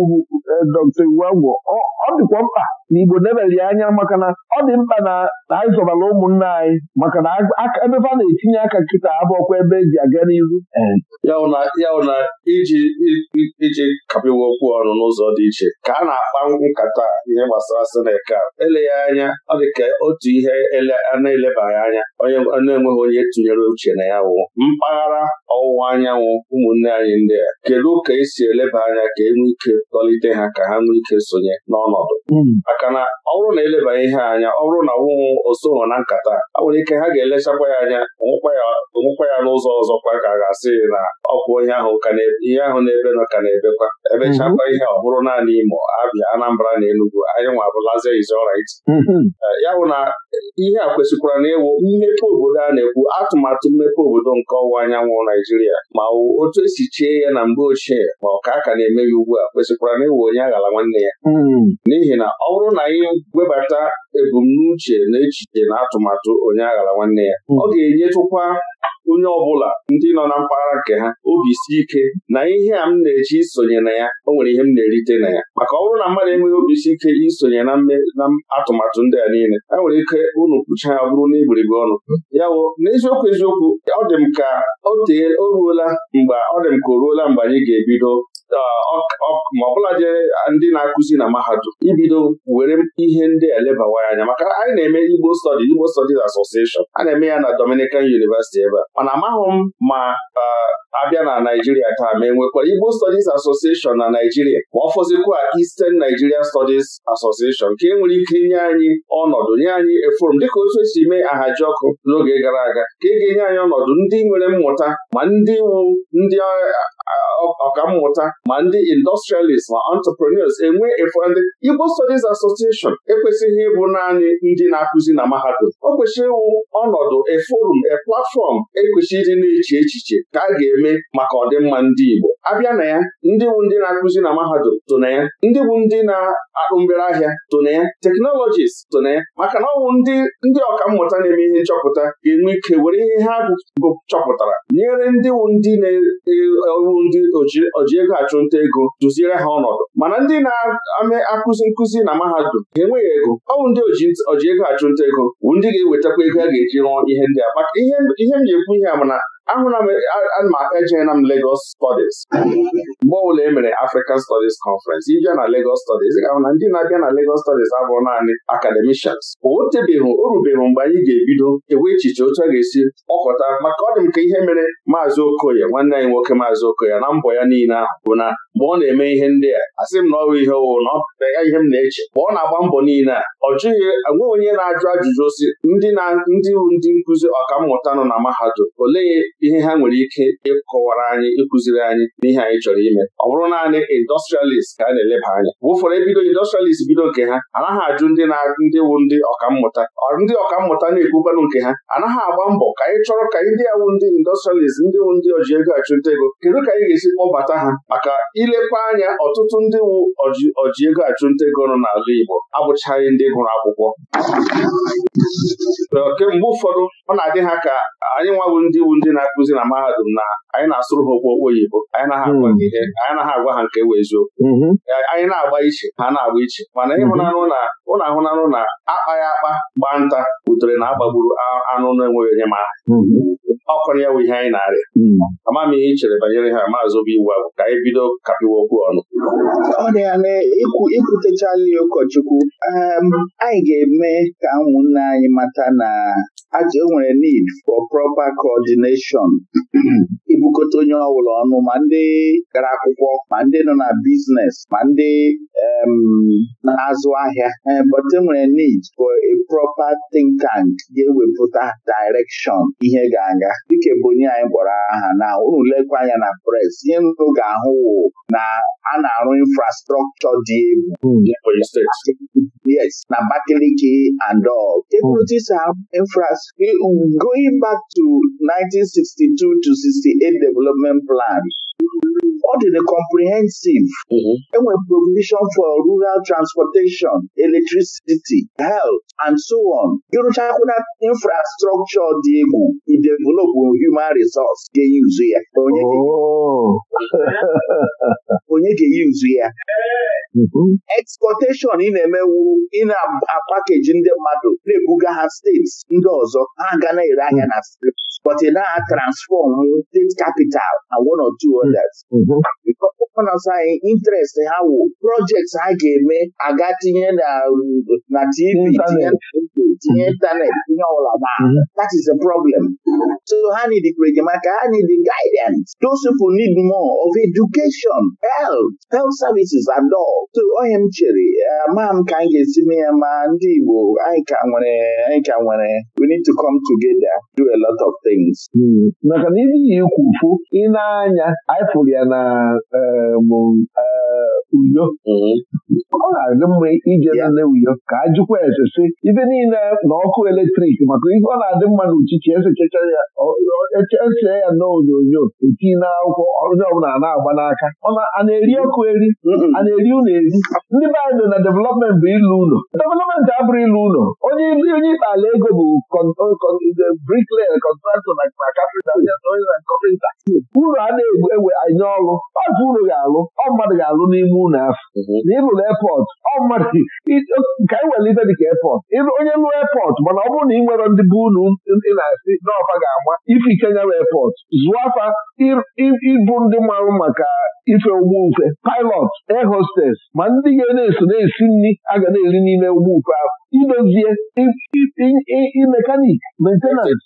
e, Dr. Iwuagwo ọ dịkwa mkpa na Igbo nebeli anya maka na ọ dị mkpa na anyị zọbara ụmụnna anyị maka na ebe na-etinye aka nkịta abụọkwa ebe eji aga n'iru iji kapịwa okwu ọnụ n'ụzọ dị iche ka a na-akpa nkata ihe gbasara ele eleghị anya ọ dị ka otu ihe a na-elebaghị anya onye na-enweghị onye tụnyere uche na ya wụ mpaghara ọwụwa anyanwụ ụmụnne anyị ndị a kedu ka esi eleba anya ka e nwee ike tọlite ha ka ha nwee ike sonye n'ọnọdụ hmm. maka na ọ bụrụ na eleba ihe anya ọ bụrụ na ọwụwụ osoghị na nkata a nwere ike ha ga-elechakwa ya anya onwekwa ya n'ụzọ ọzọkwa ka a ga-asị na ọkwụ ihe ahụ na nọ ka na-ebekwa ebe chakwa mm-hmm. ihe ọ bụrụ naanị Imo Abịa Anambra na Enugu anyị nwa abụlazi izrit mm-hmm. eh, ya bụ na eh, ihe a kwesịkwara na ịwụ mmepe obodo a na-ekwu atụmatụ mmepe obodo nke ọwụwa anyanwụ Naijiria ma otu esi chie ya na mgbe ochie ma ọ ka aka na-eme ya ugbu a kwesịkwara na ịwụ onye aghara nwanne ya mm-hmm. n'ihi na ọ bụrụ na anyị webata ebumnuche na echiche na atụmatụ onye aghara nwanne ya ọ ga-enyetụkwa onye ọbụla ndị nọ na mpaghara nke ha obi si ike na ihe a m na-eji isonye na ya o nwere ihe m na-erite na ya maka ọ bụrụ na mmadụ enweghị obi si ike isonye na na atụmatụ ndị a niile e nwere ike unu kpucha ya bụrụ n'igburugburu ọnụ ya wo n'eziokwu eziokwu ọ dị m ka o ruola mgbe ọ dị m ka o ruola mgbe anyị ga-ebido ma ọbụladị ndị na-akụzi na mahadum ibido were ihe ndị elebawa anya maka anyị na-eme Igbo Studies Igbo Studies Association a na-eme ya na Dominican University ebe mana amaghị m ma abịa na Naijiria taa ma e nwekwara Igbo Studies Association na Naijiria ma ọ fọzikwa Eastern Nigerian Studies Association nke e nwere ike inye anyị ọnọdụ nye anyị eforum dịka otu esi mee ahaji ọkụ n'oge gara aga ka ị e ga-enye anyị ọnọdụ ndị nwere mmụta ma ndị iwu ndị ọkammụta ma ndị industrialist ma entrepreneurs enwe efọdị Igbo Studies Association ekwesịghị ịbụ naanị ndị na-akụzi na mahadum o kwesịrị ịwụ ọnọdụ eforum e platfọm ekwesịrị ịdị na-eche echiche ka a ga-eme eme maka ọdịmma ndị Igbo abịa na ya ndị bụ ndị na-akụzi na mahadum tụ na ya ndị bụ ndị na-akpụ mbere ahịa tụ na ya teknọlọjist tụ na ya maka na ọ bụ ndị ndị ọka mmụta na-eme ihe nchọpụta ga-enwe ike were ihe ha bụ chọpụtara nyere ndị wu ndị na-ewu ndị oji ego achụnta ego duziere ha ọnọdụ mana ndị na-ame akụzi nkụzi na mahadum enweghị ego ọ bụ ndị oji ego achụnta ego bụ ndị ga-ewetakwa ego a ga-eji rụọ ihe ndị a maka ihe m na-ekwu ihe a mana ana m ejeela m Lagos Studies mgbe ọbụla e mere African Stọdis Conference ịbịa na Legos stọdis. ị ahụ na ndị na-abịa na Legos stọdis abụrụ naanị akademishans o tebeghị o mgbe anyị ga-ebido ewe echiche otu a ga-esi ọkọta maka ọ dị m ka ihe mere maazị Okoye nwanne anyị nwoke maazị Okoye na mbọ ya niile ahụ bụ na mgbe ọ na-eme ihe ndị a asị m na ọrụ ihe owo na ọpụta ya ihe m na-eche mgbe ọ na-agba mbọ niile a ọ jụghị enweghị onye na-ajụ ajụjụ osi ndị na ndị ndị nkụzi ọkammụta nọ na mahadum olee ihe ha nwere ike ịkọwara anyị ịkụziri anyị n'ihe anyị chọrọ ime ọ bụrụ naanị industrialist ka a na-eleba anya bụ ụfọdụ ebido industrialist bido nke ha anaghị ajụ ndị na ndị wu ndị ọkammụta ndị ọkammụta na-ekwukwanụ nke ha anaghị agba mbọ ka anyị chọrọ ka ndị awụ ndị industrialist ndị wu ndị ọji ego achụnta ego kedu ka anyị ga-esi kpọbata ha maka ilekwa anya ọtụtụ ndị wu oji ego achụnta ego nọ n'ala Igbo abụchaghị ndị gụrụ akwụkwọ kemgbe ụfọdụ ọ na-adị ha ka anyị nwawu ndị wu ndị na na-akụzi na mahadum na anyị na-asụrụ ha okwu okwu oyibo anyị naghị hmm. agwa ha ihe anyị naghị agwa ha nke weziokwu mm-hmm. anyị na-agba iche ha na-agba iche mana mm-hmm. ịhụnanụ na ụlọ ahụnanụ na akpaghị akpa gbaa nta butere na agbagburu anụ na-enweghị onye ma mm-hmm. ọkụrụ ya bụ ihe anyị na-arịa ama m ihe ị chere banyere ha maazị obi iwu abụ ka anyị bido kapịwa okwu ọnụ ọ dị ya na ụkọchukwu ehm, anyị ga-eme ka ụmụnne anyị mata na aja enwere need for proper coordination ibukọta onye ọbụla ọnụ ma ndị gara akwụkwọ ma ndị nọ na biznes ma ndị na-azụ ahịa eh, but enwere need for a proper think tank ga-ewepụta direction ihe ga-aga dịka bụ onye anyị kpọrọ aha na ụlọ lekwa anya na press ihe unu ga-ahụ na a na-arụ infrastructure dị egwu hmm. yes na Abakaliki and hmm. going back to 1962 a development plan ọ dịrị comprehensive enwe mm-hmm. provision for rural transportation electricity health and so on ịrụchakwụna infrastructure dị egwu idevelop human resource ga-eyuzu ya onye oh. ga-eyuzu ya mm-hmm. exportation ị na-emewu ị na-apakeji ndị mmadụ na-ebuga ha steeti ndị ọzọ ha ga na-ere ahịa na steeti but e na transform state capital and one or two others. Gọvanọs mm-hmm. anyị interest ha wụ projects ha ga-eme aga tinye na TV tinye intanet tinye ọla na that is a problem. So ha need enyemaka ha need guidance. Those people need more of education, health, health services and all. So onye m chere eh, maa m ka anyị ga-esi mee ya ma ndị Igbo anyị ka nwere anyị ka nwere we need to come together. a lot of things hmm. maka na ihe iyi ikwufu ị na-anya anyị ya na eh, eh, uyo hmm. ọ na-adị mma ije nne uyo ka a jụkwa ese sị ibe niile na ọkụ eletrik maka ihe ọ na-adị mma na uchichi esechecha ya echechee ya na onyonyo eti na akwụkwọ ọbụla na-agba n'aka a na-eri ọkụ eri hmm. a na-eri ụlọ eri ndị be na development bụ ilu ụlọ development abụrụ ilu ụlọ onye ikpe ala ego bụ eh, brikle kọntraktọ na na uru a na ewe anya ọrụ ọzọ uru ga-alụ ọ mmadụ ga-alụ n'ime ụlọ afọ mhm. na epọt ọ mmadụ ka anyị nwere ife dịka epọt onye lụọ epọt mana ọ bụrụ na ị nwere ndị bụ unu ị na-asị n'ọfa ga-agba ife ikenya epọt zụọ afa ịbụ ndị marụ maka ife ụgbọ ufe pilọt air hostess ma ndị ga na-eso na-esi nri a ga na-eri n'ime ụgbọ ufe ahụ idozie imekanik mentenans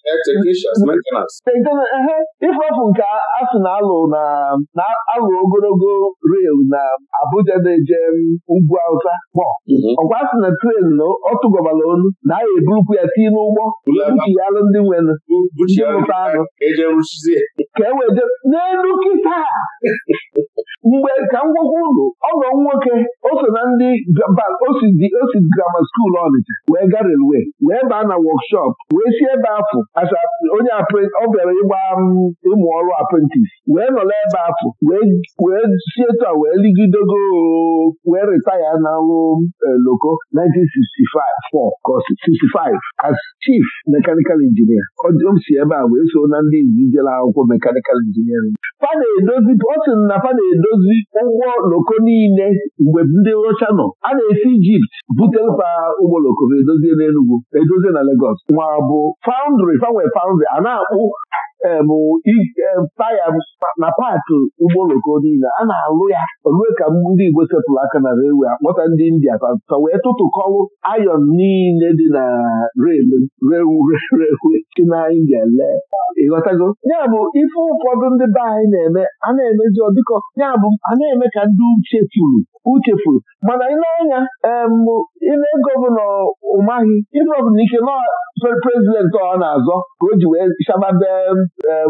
ịfọfụ nke asụ na-alụ na-alụ ogologo rel na Abuja na-eje ugwu Awụsa kpọ mhm. ọkwa asị na tren na ọ tụgọbara onu na a eburukwu ya tii n'ụgbọ buchialụ ndị nwenụ ụta anụ ka e weje n'elu nkịta mgbe ka m gwakwa ọ nọ nwoke o so na ndị o si grama skuulu ọ kọmiti wee ga relwe wee baa na wọkshọp wee si ebe afọ onye ọ bịara ịgba um, ịmụ ọrụ aprentis wee nọrọ ebe afọ wee si etu a wee ligidego wee retaya n'ọrụ um, e, loko 1964 65 as chief mechanical engineer o si ebe a wee so na ndị izijere akwụkwọ mechanical engineering edozi otin na fa na-edozi ụgbọ loko niile mgbe ndị rocha nọ a na-esi Ijipt butere ụgbọ oloko ma edozie n'Enugwu edozie na legos nwa bụ faundri fanwe faundri a na-akpụ taya na paakị ụgbọ oloko niile a na-alụ ya olue ka ndị Igbo sepụrụ aka na rewe akpọta ndị India ka wee kọlụ ayọn niile dị na rewe si na India lee ịghọtago ya bụ ife ụfọdụ ndị be anyị na-eme a na-emezi ọdịkọ ya bụ a na-eme ka ndị uche tụrụ uchefuru mana ile anya ile gọvanọ ụmaghị ile ọbụla ike prezidentị ọ na-azọ ka o ji wee shababe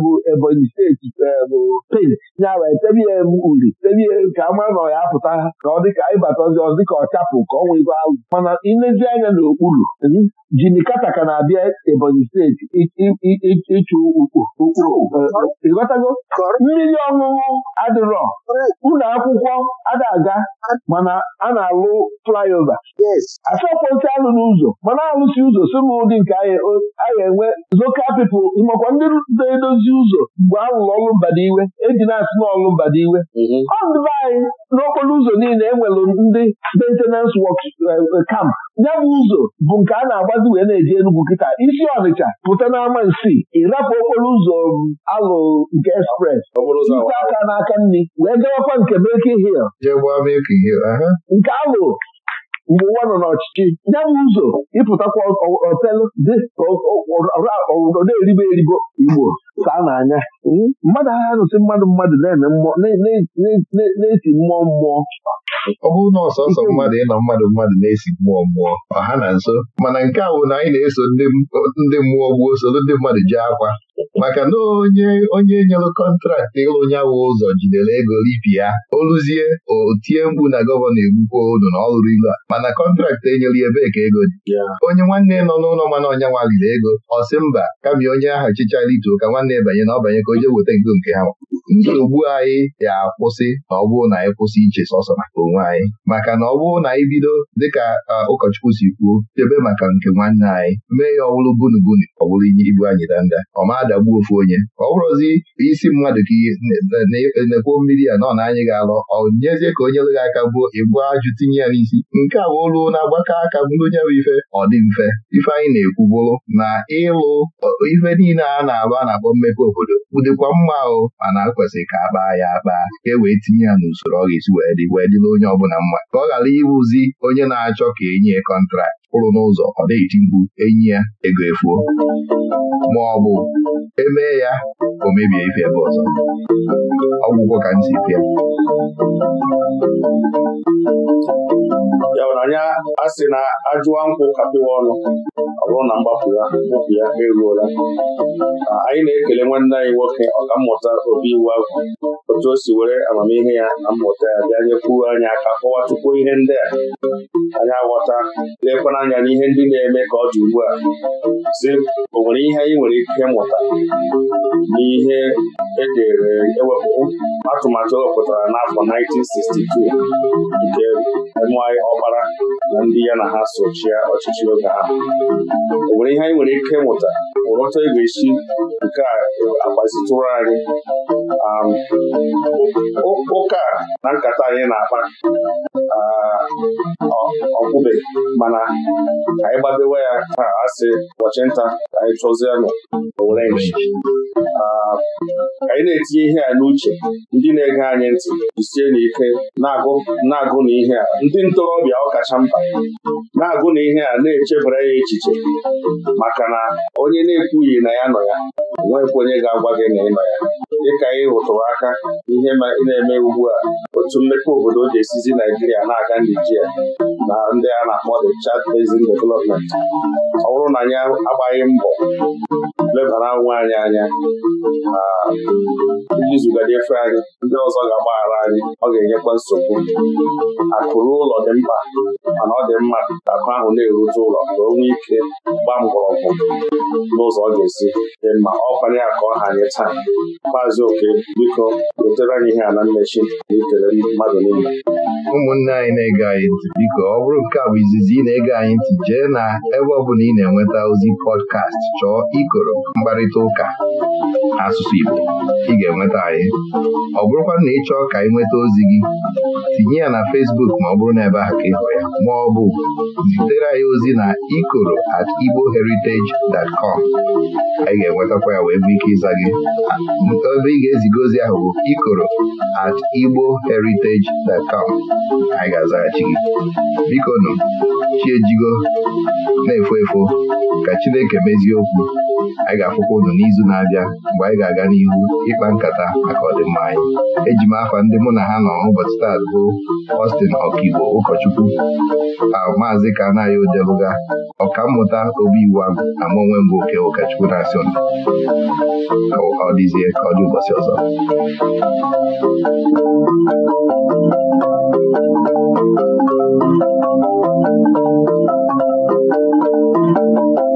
bụ Ebonyi steeti bụ pent nyara etebie uri tebie ka ama na ya apụta ka ọ dịka ịbatazi ọzọ dịka ọ chapụ ka ọ nwee ego ahụ mana ilezi anya n'okpuru jini kata ka na-abịa Ebonyi steeti ịchụ ụkpụrụ eh, mmiri ọṅụṅụ adịrọ ụlọ akwụkwọ ada aga mana a na-alụ flyover asọkwentị alụ n'ụzọ mana alụsi ụzọ sị m ụdị nke a enwe zoka pipụl makwa ndị na-edozi ụzọ mgbe a lụrụ ọlụ mbadiwe eji na-asị n'ọlụ mbadiwe mm-hmm. ọ ndị be anyị n'okporo ụzọ niile enwere ndị maintenance wok eh, camp ya bụ ụzọ bụ nke a na-agbazi wee na-eji Enugwu kịta isi Ọnịcha pụta n'ama nsị ịrapụ okporo ụzọ um, alụ nke espres ite aka n'aka nri wee gawakwa nke Milk Hill nke alụ mgbe ụwa nọ n'ọchịchị ya bụ ụzọ ịpụtakwa otelụ dị ka na-eribo eribo igbo saa n'anya hmm? mmadụ agha nụsị mmadụ mmadụ na-esi mmụọ mmụọ ọ bụrụ na ọsọsọ mmadụ ịnọ mmadụ mmadụ na-esi mmụọ mmụọ ọha na nso mana nke a bụ na anyị na-eso ndị mmụọ gbuo soro ndị mmadụ jee akwa maka na onye onye nyere kọntraktị ịlụ nyawa ụzọ jidere ego ripi ya oluzie o tie mkpu na gọvanọ egbukwa olu na ọ ilu a mana kọntraktị enyere ya ebee ka ego dị onye nwanne nọ n'ụlọ mana ọnya nwa liri ego ọ sị mba kama onye ahụ chịchara ito ka nwanne banye na ọbanye ka o jee weta ego nke ha nsogbu anyị ga-akwụsị na ọ bụrụ na anyị kwụsị iche sọsọ maka onwe anyị maka na ọ bụrụ na anyị bido dịka ụkọchukwu si kwuo chebe maka nke nwanne anyị mee ya ọ bunubunu ọ bụrụ inye ibu anyị danda ọ ma adagbuo ofu onye ọ bụrụzi isi mmadụ ka na mmiri ya nọ na anyị ga-alọ ọ nyezie ka onye lụghị aka gbuo ịgbu ajụ tinye ya n'isi nke a bụ olu na-agbakọ aka bụrụ onye bụ ife ọ dị mfe ife anyị na-ekwu bụrụ na ịlụ ife niile a na a na-akpọ mmepe obodo ụdịkwa mma ahụ ma na kwesịrị ka a kpaa ya akpa ka e wee tinye ya n'usoro ọ ga-esi wee dị wee dịla onye ọbụla mma ka ọ ghara ịwụzi onye na-achọ ka enye kọntrakt kwụrụ n'ụzọ ọ na-eti enyi ya ego efuo ma ọ bụ emee ya o mebie ife ebe ọzọ ọgwụgwọ ka ntị pịa ya anya a sị na ajụwa nkwụ kapịwa ọnụ ọ bụrụ na mgbapụ ya mkpụpụ ya eruola anyị na-ekele nwanne anyị nwoke mmụta obi iwu agwụ otu o si were amamihe ya na mmụta ya bịa nyekwuo anyị aka kọwatukwuo ihe ndị a anyị aghọta lekwana anya n'ihe ndị na-eme ka ọ dị ugbu a sị o nwere ihe anyị nwere ike mụta n'ihe edere e atụmatụ ewepụtara n'afọ 1962 nke enweghị ọkpara na ndị ya na ha sochie ọchịchị oge ahụ o nwere ihe anyị nwere ike mụta ụrọta e esi nke a agbazitụrụ anyị ụka na nkata anyị na-akpa ọkpụbe mana anyị gbabewe ya ha asị ụbọchị nta anyị chọzienụ orenji anyị na-etinye ihe a n'uche ndị na-ege anyị ntị jisie n'ike na-agụ na na ihe a ndị ntorobịa ọkacha mba na-agụ na ihe a na-echebara ya echiche maka na onye na-ekwughị na ya nọ ya nwekwa onye ga-agwa gị na ị nọ ya dịka anyị hụtụrụ aka ihe na-eme ugbu a otu mmepe obodo ji esizi Naijiria na-aga Nijiria na ndị a na-akpọ the Chad Basin Development ọ bụrụ na ya agbaghị mbọ lebara nwa anyị anya ndị efe anyị ndị ọzọ ga-agbaghara anyị ọ ga-enyekwa nsogbu akụrụ ụlọ dị mkpa mana ọ dị mma ka akụ ahụ na-erute ụlọ ka onwe ike gbaa mgbọrọgwụ n'ụzọ ọ ga-esi dị mma ọ kwanye ọ ha anyị taa maazị oke biko wetere anyị ihe a na mmechi na ikele mmadụ niile ụmụnne anyị na-ege anyị ntị biko ọ bụrụ nke a bụ izizi ị na-ege anyị ntị jee na ebe ọ bụla ị na-enweta ozi pọdkast chọọ ikoro mkparịta ụka asụsụ Igbo ị ga-enweta anyị ọ bụrụkwa na ị chọọ ka ị nweta ozi gị tinye ya na Fesbuk ma ọ bụrụ na ebe ahụ ka ịhụ ya ma ọ bụ zitere anyị ozi na ikoro at igboheritage.com anyị ga-enwetakwa ya wee nwee ike ịza gị ebe ị ga-eziga ozi ahụ bụ ikoro at igboheritage.com anyị ga-azaghachi gị biko nụ Chijigo, na-efo efo ka Chineke mezie okwu anyị ga-afụkwa ụnụ n'izu na-abịa mgbe anyị ga-aga n'ihu ịkpa nkata maka ọdịmma anyị eji m afa ndị mụ na ha nọ ụbọchị taa bụ Ọstin ọkaigbo ụkọchukwu maazị Kanayo Deluga ọkammụta obi iwu ahụ na onwe mbụ oke ụkọchukwu na-asị ọ dịzie ka ọ dị ụbọchị ọzọ Thank you.